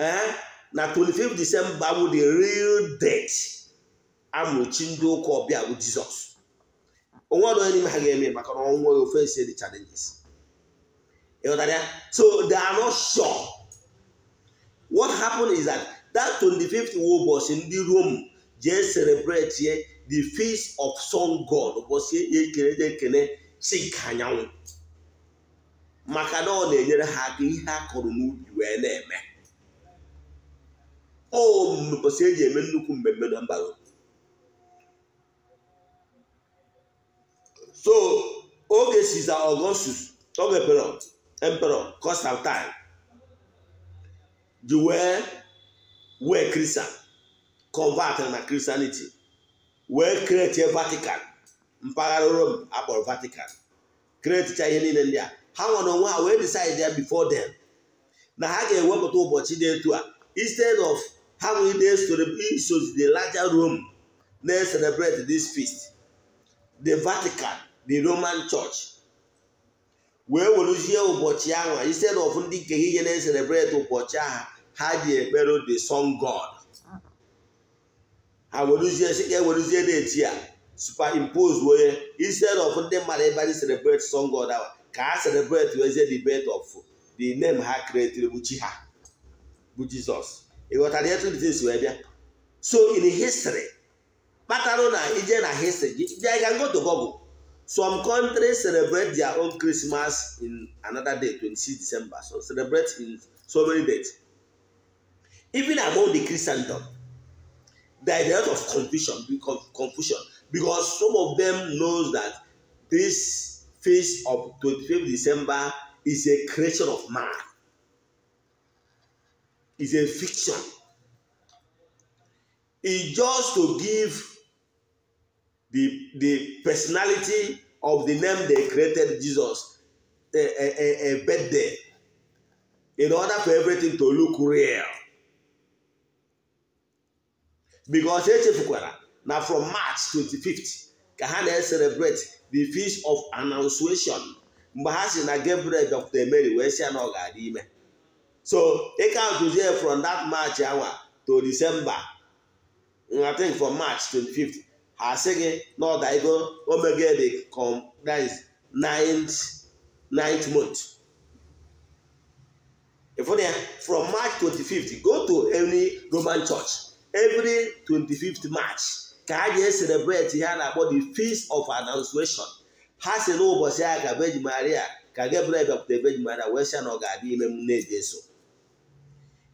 ee na 25 disemba bụ the real date amụrụ chi ndị ụka ọbịa bụ jizọs onwe ọdụ onye n'ime ha ga-eme maka na ọnwụ nweghị ofe dị challenges ịghọtara ya so they are not sure what happened is that that 25th ụbọchị ndị Rome jee celebrate the feast of sun god ụbọchị ekele je ekele chi anyanwụ maka na ọ na-enyere ha aka ihe a kọrọ n'ubi wee na-eme o mbọsị eji eme nnukwu mmemme na mba so oge siza Augustus oge perot emperor time, ji wee wee Christian convert na christianity wee kretie vatican mpaghara rome akpọrọ vatican kreticha ihe niile ndị a ha nwere onwe ha wee decide before them na ha ga-ewepụta ụbọchị dị etu a instead of ha nwere isozi the larger rome na-celebrate this feast the vatican the roman church wee weruzie ụbọchị ahụ instead of ndị nke ihe na-eselebreti ụbọchị ahụ ha ji ekpere the sun god ha weruzie si ka eweruzie na-eti a superimpose onye instead of ndị mmadụ ebe anyị celebrate sun god ahụ ka ha celebrate wezie the birth of the name ha created bụ chi ha bụ jizọs ịghọtara etu ndị si wee bịa so in history kpatara na ije na history bịa ga ngo to google Some countries celebrate their own Christmas in another day, twenty-six December. So celebrate in so many dates. Even among the Christendom, there is a lot of confusion confusion because some of them knows that this feast of twenty th December is a creation of man. It's a fiction. It's just to give the, the personality of the name they created Jesus a, a, a, a birthday in order for everything to look real. Because echefukwara na from March 25th ka ha na-celebrate the feast of annunciation mgbe ha si na Gabriel Dr. Mary wee si ya na ọ ga-adị ime so ị ka ntụzie from that March hour to December I think from March 25th asị gị na ọdaigo omegede compliance ninth ninth month ịfụna ya from march 25th go to any roman church every 25th march ka a ga-eselebreti ihe a na-akpọ the feast of annunciation ha si n'ụbọchị a ka Virgin Maria ka Gabriel bịakwute Virgin Maria wee sị na ọ ga-adị ime m na-ejeso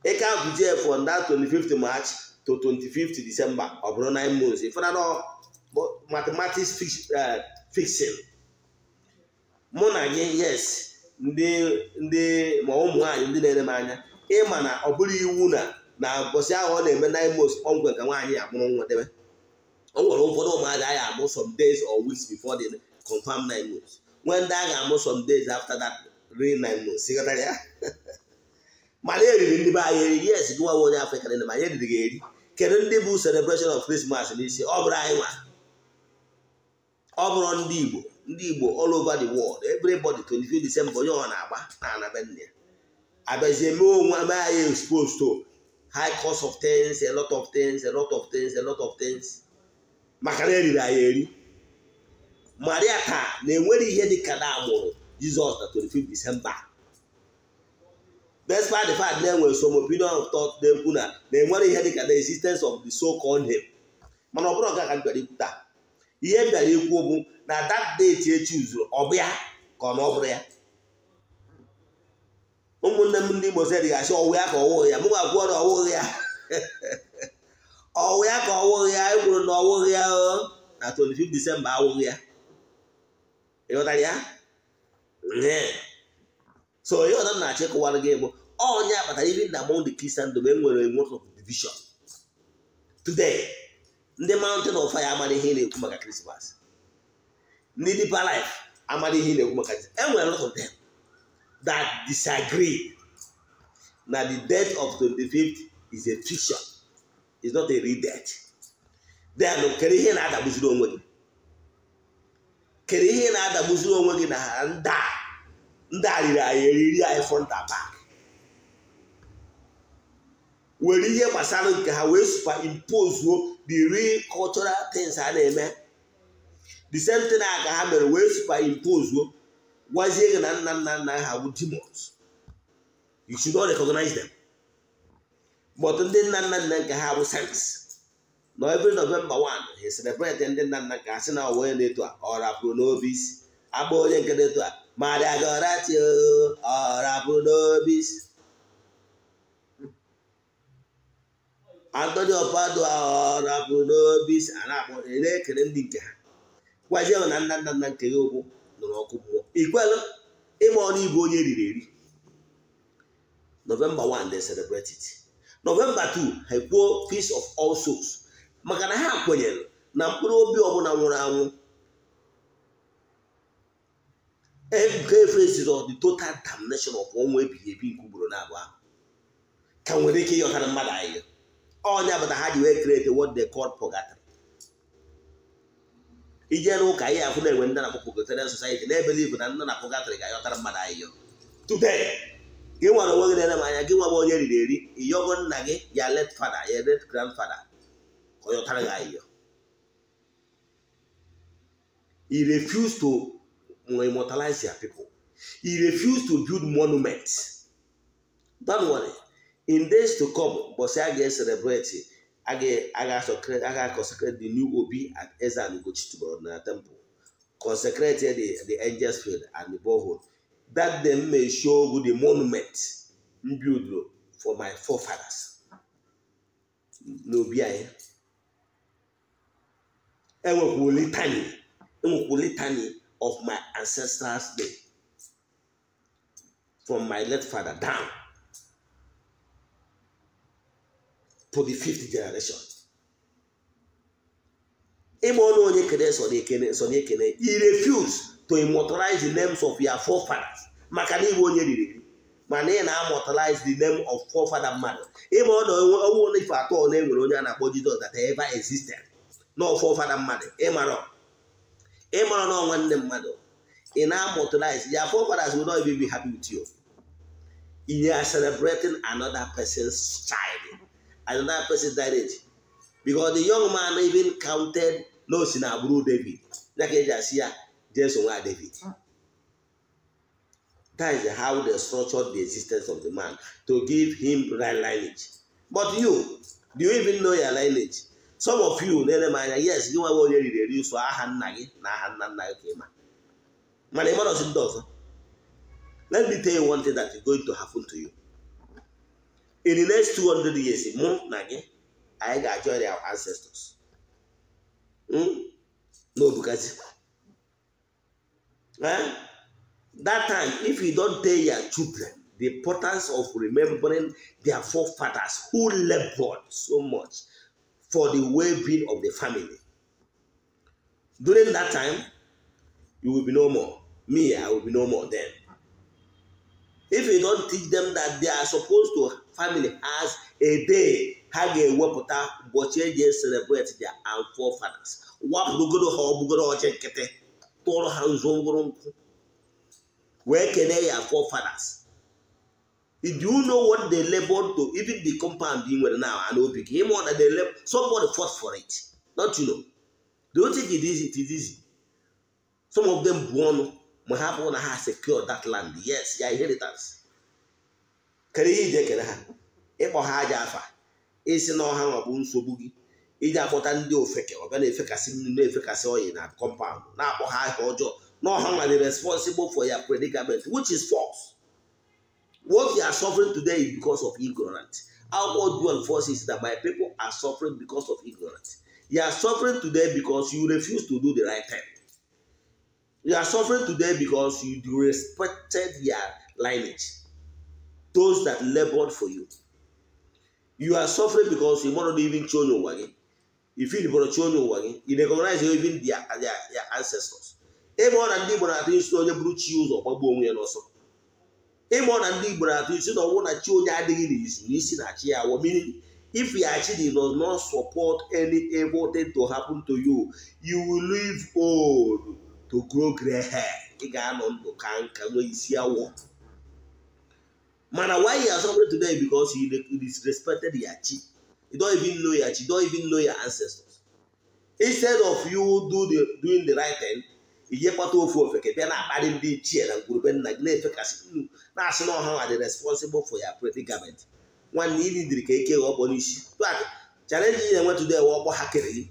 ịka bujie from that 25th march to 25th december ọ bụrụ 9 months ịfụna mathematics fixing uh, mụ na gị yes ndị ndị ma ụmụ nwaanyị ndị na-ere m anya ịma na ọ bụrụ iwu na na mbọsị ahụ ọ na-eme na imo ọgwe ka nwaanyị ya mụrụ nwa debe ọ nwere ụfọdụ ụmụada a ga-amụ some days or weeks before the confirm nine months nwee ndị a amụ some days after that real nine months sikọtara ya mana eriri ndị be anyị eri yes gị nwa onye afrịka na ma anyị eriri gị eri kedu ndị bụ celebration of Christmas n'isi ọ bụrụ anyị nwa ọ bụrụ ndị Igbo ndị Igbo all over the world everybody 25 December onye ọ na-agba na anabenna ya abịazie mee onwe mee anyị exposed to high cost of things a lot of things a lot of things a lot of things maka na eriri anyị eri maria taa na-enwere ihe ka na amụrụ Jizọs na 25 December despite the fact na enwe some opinion of thought na-ekwu na na-enwere ihe dị the existence of the so-called him mana ọ bụrụ ọga ka m bịara ikwu taa ihe bịara ikwu bụ na dat date echi uzuru ọ bụ ya ka ọ na ọ ya ụmụnne m ndị Igbo sịrị gasị ọwụ ya ka ọwụghị ya mụ ga-akwụọ na ọwụghị ya ọwụ ya ka ọwụghị ya ekwuru na ọwụghị ya na 25 Disemba awụghị ya ịghọtara ya so ihe ọzọ na-achọ ịkụwara gị bụ ọnya akpatara iri na among the Christian e nwere nwoke division today ndị mountain of fire amara ihe na-ekwu maka krismas ndị deeper life amara ihe na-ekwu maka enwere lot of them that disagree na the death of 25th is a fiction is not a real death then kere ihe na-adagbuziri onwe gị kere ihe na-adagbuziri onwe gị na ndị a ndị a riri anyị eriri anyị front and were ihe gbasara nke ha wee superimpozuo the real cultural things ha na-eme the same thing a ka ha mere wee superimpozuo gwazie gị na nna nna nna ha bụ demons you should not recognize them but ndị nna nna nna nke ha bụ saints na every novemba 1 he celebrate ndị nna nna ka asị na onye na-eto a ọ rapụrụ n'obi isi onye nke na-eto a madagorati ọ rapụrụ n'obi isi Anthony Ọpadụ rapụrụ n'obi si a na-akpọ na-ekele ndị nke ha gwazie na nna nna nna nke ya okwu nụrụ ọkụ mmụọ ikwelụ ịma ọnụ ibu onye riri eri novemba 1 they celebrate it novemba 2 ha kwuo Feast of All Souls maka na ha kwenyere na mkpụrụ obi ọbụla nwụrụ anwụ every of the total damnation of ọnwụ ebighị ebi nke ugboro na abụọ ahụ ka nwere ike ịghọtara mmadụ anyị ọnya bụ ha ji wee create what they call purgatory ije n'ụka ihe afụ na-enwe ndị na-akpọ purgatorial society na-ebelive na ndị na purgatory ga-ayọtara mmadụ ahịhịa today gị nwere onwe gị na-ere m anya gị nwa onye riri eri ịyọgo nna gị ya let fada ya let grandfada ka ọ yọtara gị ahịhịa he to immortalize their people he refuse to build monument don't in days to come say i ga-eselebreti i ga consecrate the new obi at eze and Ugochitubelu na temple consecrate the, the angels field and the borehole that dem may show the monument m build for my forefathers n'obi anyị enwekwu litany enwekwu litany of my ancestors day from my late father down to the fifth generation ịma ọnụ onye kere so i refuse to immortalize the names of your forefathers maka na iwe onye riri mana ị na-amortalize the name of forefather mmadụ ịma ọnụ ọnwụ onye ife atọ na enwere onye a na-akpọ Jizọs that ever existed na forefather mmadụ ịmara ịmara na nne mmadụ ị na-amortalize ya forefathers will not even be happy with you you are celebrating another person's child I do not person that age because the young man even counted na in si na agbụrụ David ya ka eji asị ya jeso David hmm. that is how they structured the existence of the man to give him right lineage but you do you even know your lineage some of you na-ele m anya yes gị nwa onye riri so ụsọ ah, aha nna gị na aha nna nna gị ka ịma mana ịmarọzi ndị let me tell you one thing that is going to happen to you in the next 200 years mụ na gị anyị ga-ajọrị our ancestors hmm? n'obugazi eh? that time if you don't tell your children the importance of remembering their forefathers who labored so much for the well-being of the family during that time you will be no more me i will be no more then if you don't teach them that they are supposed to family has a day ha ga-ewepụta ụbọchị eji celebrate their fathers. wapụrụgoro ha ọgbụgoro ọchị nkịtị tụọrọ ha nzu ngwụrụ nkwụ wee kelee ya forefathers do you know what they labor to even the compound ị nwere now and obi gị ịma na they somebody fought for it not you know The only thing it is it is easy some of them bụ ọnụ ma ha na ha secure that land yes ya inheritance kere ihe iji ekele ha ịkpọ ha aja afa isi na ọha nwakpo nsogbu gị iji akpọta ndị ofeke ọbịa na-efekasị mmiri na-efekasị oyi na kọmpaụnd na-akpọ ha aha ọjọọ na ọha nwa responsible for ya predicament which is false what you are suffering today is because of ignorance our dual forces is that my people are suffering because of ignorance you are suffering today because you refuse to do the right thing you are suffering today because you disrespected your lineage those that labored for you. You are suffering because you want not even show your wagon. If you want to show your wagon, you recognize even their, their, their ancestors. Ịmụọ na ndị Igbo na-atụ isi onye bụrụ chi ụzọ gbagbuo onwe ya n'ọsọ. Ịmụọ na ndị Igbo na-atụ isi na ọnwụ na chi onye adịghị n'izu n'isi na chi ya awọ mmiri if Yachidi does not support any evil thing to happen to you, you will live old to grow gray hair. Ị ga-anọ ndụ ka nka nwee isi awọ. mana why he has suffered today because he disrespected yachi you don't even know yachi you don't even know your ancestors instead of you do the doing the right thing inyekpata ofu ofeke bịa na-akparị ndị ichie na ngwurube nna gị na-efekasị nnu na-asị na ọha dị responsible for your predicament nwanne ili dịrị ka eke ọkpọ n'isi tak chalenji na-enwe today wa ọkpọ ha kere gị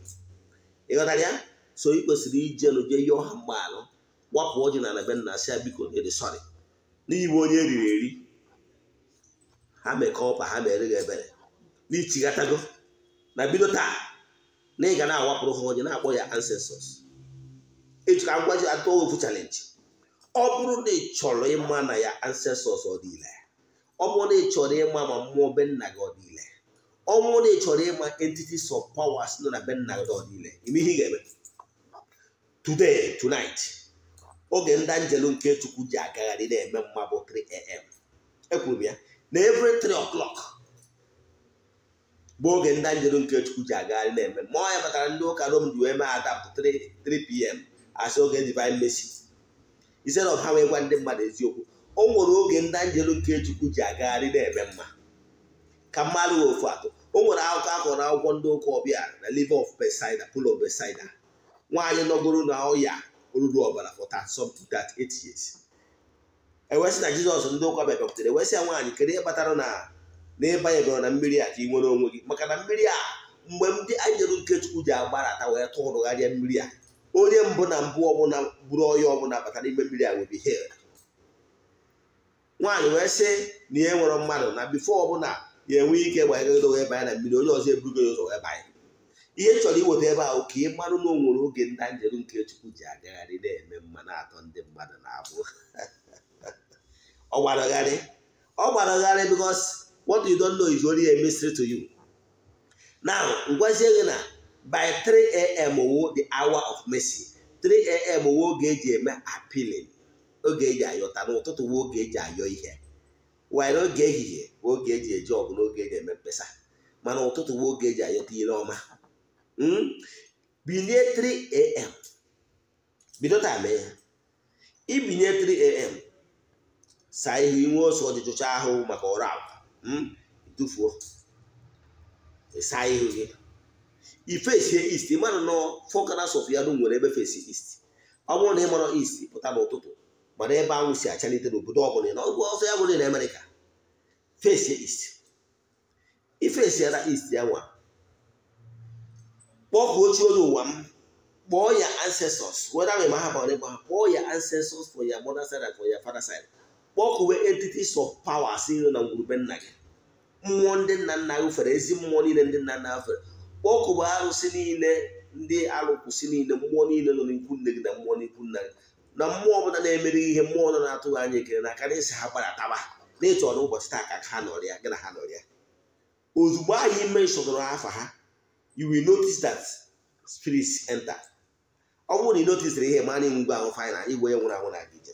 ịghọtara ya so ị kwesịrị ije nụ jee yọọ ha mgbe alụ gbapụ ọjị na na be nna sị ya biko ede eh, sọrị n'igbe onye eriri eri ha mekọ ọpa ha mere gị ebere na bido taa na ị ga na-awapụrụ ha onye na-akpọ ya ancestors ejika ngwaji atụ ofu chalenji ọ bụrụ na ị chọrọ ịma na ya ancestors ọdịile ọ bụrụ na ị chọrọ ịma ma mmụọ be nna gị ọdịile ọ bụrụ na ị chọrọ ịma entities of powers nọ na be gị ọdịile ime ihe ị ga-eme today tonight oge ndị njelu nke chukwu ji agagharị na-eme mma 3 am ekwuru m ya na every three o'clock bụ oge ndị nke chukwu ji agagharị na-eme ma ọ ya batara ndị ụka rom ji wee mee adapụ 3pm asị oge divine mercy ise na ọha wee gwa ndị mmadụ eziokwu o nwere oge ndị nke chukwu ji agagharị na-eme mma ka mmadụ ofu atọ o nwere akụkọ na akwụkwọ ndị ụka ọbịa na liver of Bethsaida pulo of nwaanyị nọgoro na ọya olulu ọbara for that sub to that eight years ewesị na jizọs ndị ụka bịabịakwutere ewesị ya nwaanyị kedu ihe kpatara na n'ebe ya na mmiri a ka ị nwere onwe gị maka na mmiri a mgbe ndị anyị nke nkechukwu ji agbarata wee tụrụgharịa mmiri a onye mbụ na mbụ ọbụla bụrụ ọya ọbụla bata ime mmiri a wee bihel nwaanyị wee sị na ihe nwere mmadụ na bifo ọbụla ya enwe ike gbanyegoro wee banye na mmiri onye ọzọ eburugo ya ụzọ wee banye ihe chọrọ iweta ebe ahụ ka ị marụ na o nwere oge ndị njeru nke chukwu ji agagharị na-eme mmanụ atọ ndị mmadụ na abụ ọ gbara ọgharị ọ gbara ọgharị bụkwa. what you know is only a mystery to you now ngwazie na by 3am wo the hour of mercy 3am wo oge eji eme appealing oge eji ayọta n'ụtụtụ wo oge eji ayọ ihe were oge ehihie oge eji eji ọgụ n'oge eji eme mkpesa mana ụtụtụ wo oge hmm? ibinye 3 saa ihe inwe oso ọjụjụcha ahụ maka ọrụ akwa hmm? tufuo saa ihu gị ifesie ist mara nọ fọkanas of ya nwere ebe fesi ist ọ bụrụ na ị mara ist pụta n'ụtụtụ mana ebe anwụ si achalite n'obodo ọbụla na ọgwụ ọsọ ya bụrụ na amerịka fesie ist ifesiara ist ya nwa kpọkụ ochie onye ụwa m kpọọ ya ancestors whether we ma ha bara ịgba ha kpọọ ya ancestors for ya mother side and for ya father side kpọkuwe entities of power si nri na ngwurube nna gị mmụọ ndị nna nna gị fere ezi mmụọ niile ndị nna nna fere kpọkuwe arụsị niile ndị alụkwụsị niile mmụọ niile nọ n'ikwu nne gị na mmụọ n'ikwu nna gị na mmụọ ọbụla na-emere ihe mmụọ nọ na-atụghị anya ekele na aka na esi ha gbadataba na ịtụ ọnụ ụbọchị taa ka ha nọrịa gị na ha nọrịa ozugbo anyị ime afa ha you wi notice that spirits enter ọ bụrụ na ị notisiri ihe mana ngwa gwa ahụ fanyana igwe ya nwụrụ anwụ na gị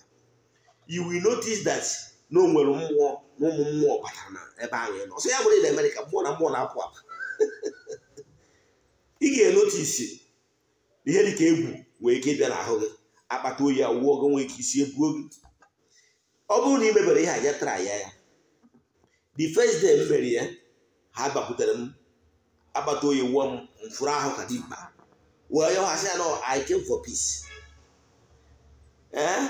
you will notice that na o nwere mmụọ na ụmụ mmụọ batara na ebe ahụ ị nọ ọsọ ya bụrụ na Amerịka mmụọ na mmụọ na-apụ apụ ị ga-enotisi ihe dịka egwu wee ike bịa n'ahụ gị akpata oyi awụọ gị nwee ike isi egbuo gị ọ bụrụ na ị mebere ihe aja tara ya ya the first day mere ya ha gbakwutere m akpata oyi wụọ m mfụrụ ahụ ka dị mkpa wee ya ha sị ya nọ I came for peace eh?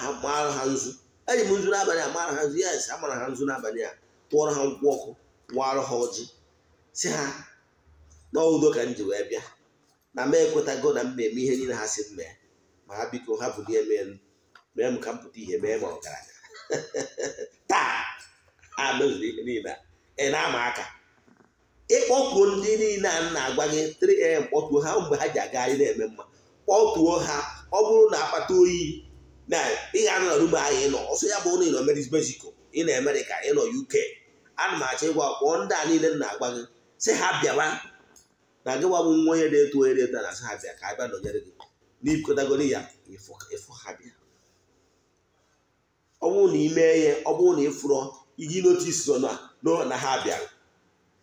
ha ha nzu eji m nzu n'abalị amara ha nzu ya esi amara ha nzu n'abalị a tụọrọ ha nkwụ ọkụ warụ ha ọjị si ha n'udo ka m ji wee bịa na m ekwetago na m na-eme ihe niile ha si m mee ma ha biko ha bụ ihe mee mee m ka m pụta ihe mee ma ọgaranya taa a mezuru ihe niile ị na-ama aka ịkpọkuo ndị niile a na-agwa gị 3am kpọtuo ha mgbe ha ji aga anyị na-eme mma kpọtuo ha ọ bụrụ na akpata oyi na ị ga-anọ na rumụ anyị nọ ọsọ ya bụ ụlọ ị nọ mexico ị nọ amerịka ị nọ uk ana m achọ ịgwa kpọọ ndị a niile na agba gị sị ha bịawa na gị bụ nwa onye na-eto onye na na sị ha bịa ka a bịa nọnyere gị n'ikotagoro ya ịfụ ha bịa ọ na ị ihe ọ bụrụ na ị fụrọ iji notisi so na ha bịara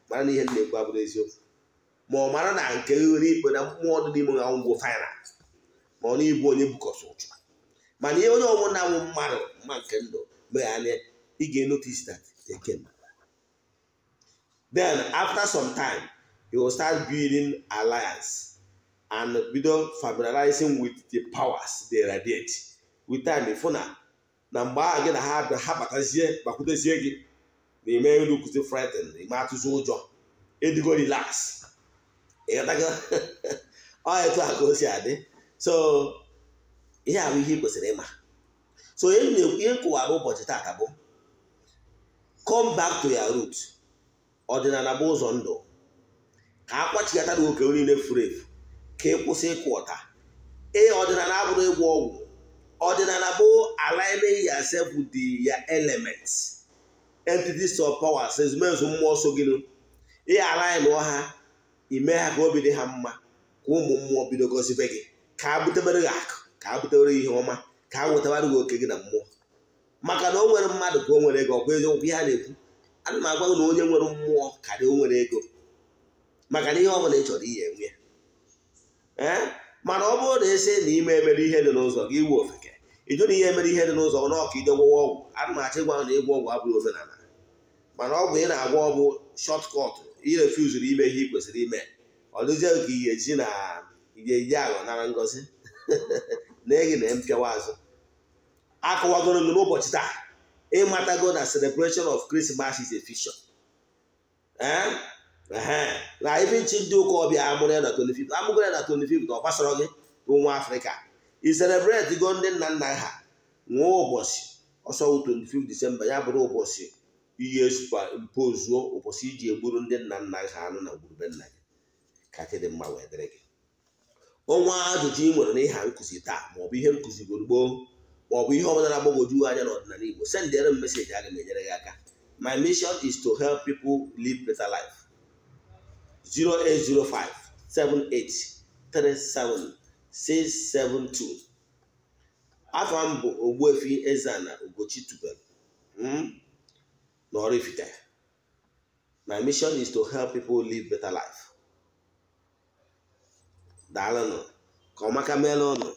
mara na ihe m na-ekwu abụrụ eziokwu ma ọ mara na nke nwere ikpe na mmụọ dị n'ime ha ngwụ fina ma ọ na ịbụ onye bukọsị ụchụ mana ihe onye ọnwụ na-anwụ mmadụ mma nke ndụ mee anya ị ga-enotice that e again then after some time you will start building alliance and bido familiarizing with the powers they radiate with time ịfụ na na mgbe ahụ gị na ha ha batazie bakwutezie gị na ime elu kụzi na ime atụzi ụjọ edigo relax ịghọtago ọ etu a ka o si adị so ihe ahụ ihe kwesịrị ịma so ihe nkụwara ụbọchị taata bụ come back to your root ọdịnala bụ ụzọ ndụ ka a kwachigata gị oke niile furu efu ka ị kwụsị ịkụ ọta ee ọdịnala abụrụ ịgwọ ọgwụ ọdịnala bụ aligning yourself di ya elements entities of powers ezumezu mmụọ so gị ị alaịnụọ ha ime ha ka obi dị ha mma ka ụmụ mmụọ bido gọzibe gị ka a butebere gị akụ ka a butewere ihe ọma ka a wetawara gị oke gị na mmụọ maka na o nwere mmadụ ka o nwere ego ọkwa eziokwu ihe a na-ekwu ana m agwa gị na onye nwere mmụọ karị o nwere ego maka na ihe ọ bụla ị chọrọ ihe enwe ya mana ọ bụrụ na esi na ime emere ihe dị n'ụzọ gị iwe ofeke ịjụ na ihe mere ihe dị n'ụzọ na ọka ide gwọwa ọgwụ ana m achọ ịgwa na ịgwọ ọgwụ abụghị omenala mana ọgwụ ị na agwa ọbụ shọt kọt irefuzuru ime ihe ị kwesịrị ime ọ dụzie ka ị ga-eji na ị ga-eji aghọ nara ngozi na-eyi na mpịawa azụ akọwagoro m n'ụbọchị taa ịmatago na celebration of Christmas is a na ibi nchi ndị ụka ọbịa amụrụ ya na 25 amụgo ya na 25 na ọ gbasara gị bụ nwa afrịka i celebrate go ndị nna nna ha nwa ụbọchị ọsọ 25 disemba ya bụrụ ụbọchị iyi mpozuo ụbọchị iji egburu ndị nna nna ha anụ na gburugburu nna gị ka dị mma wee dịrị gị ọnwa ajụjụ ị nwere n'ịha nkụzi taa maọbụ ihe nkụzi gboo maọbụ ihe ọbụla na-agbagwoju anya n'ọdịnala Igbo sendere m meseji aga m enyere gị aka my mission is to help people live better life 0805 afọ m bụ Ogbuefi eze na Ugochi tubelu hmm? na Oraifite my mission is to help people live better life daalụnụ ka ọmaka maka meela ụnụ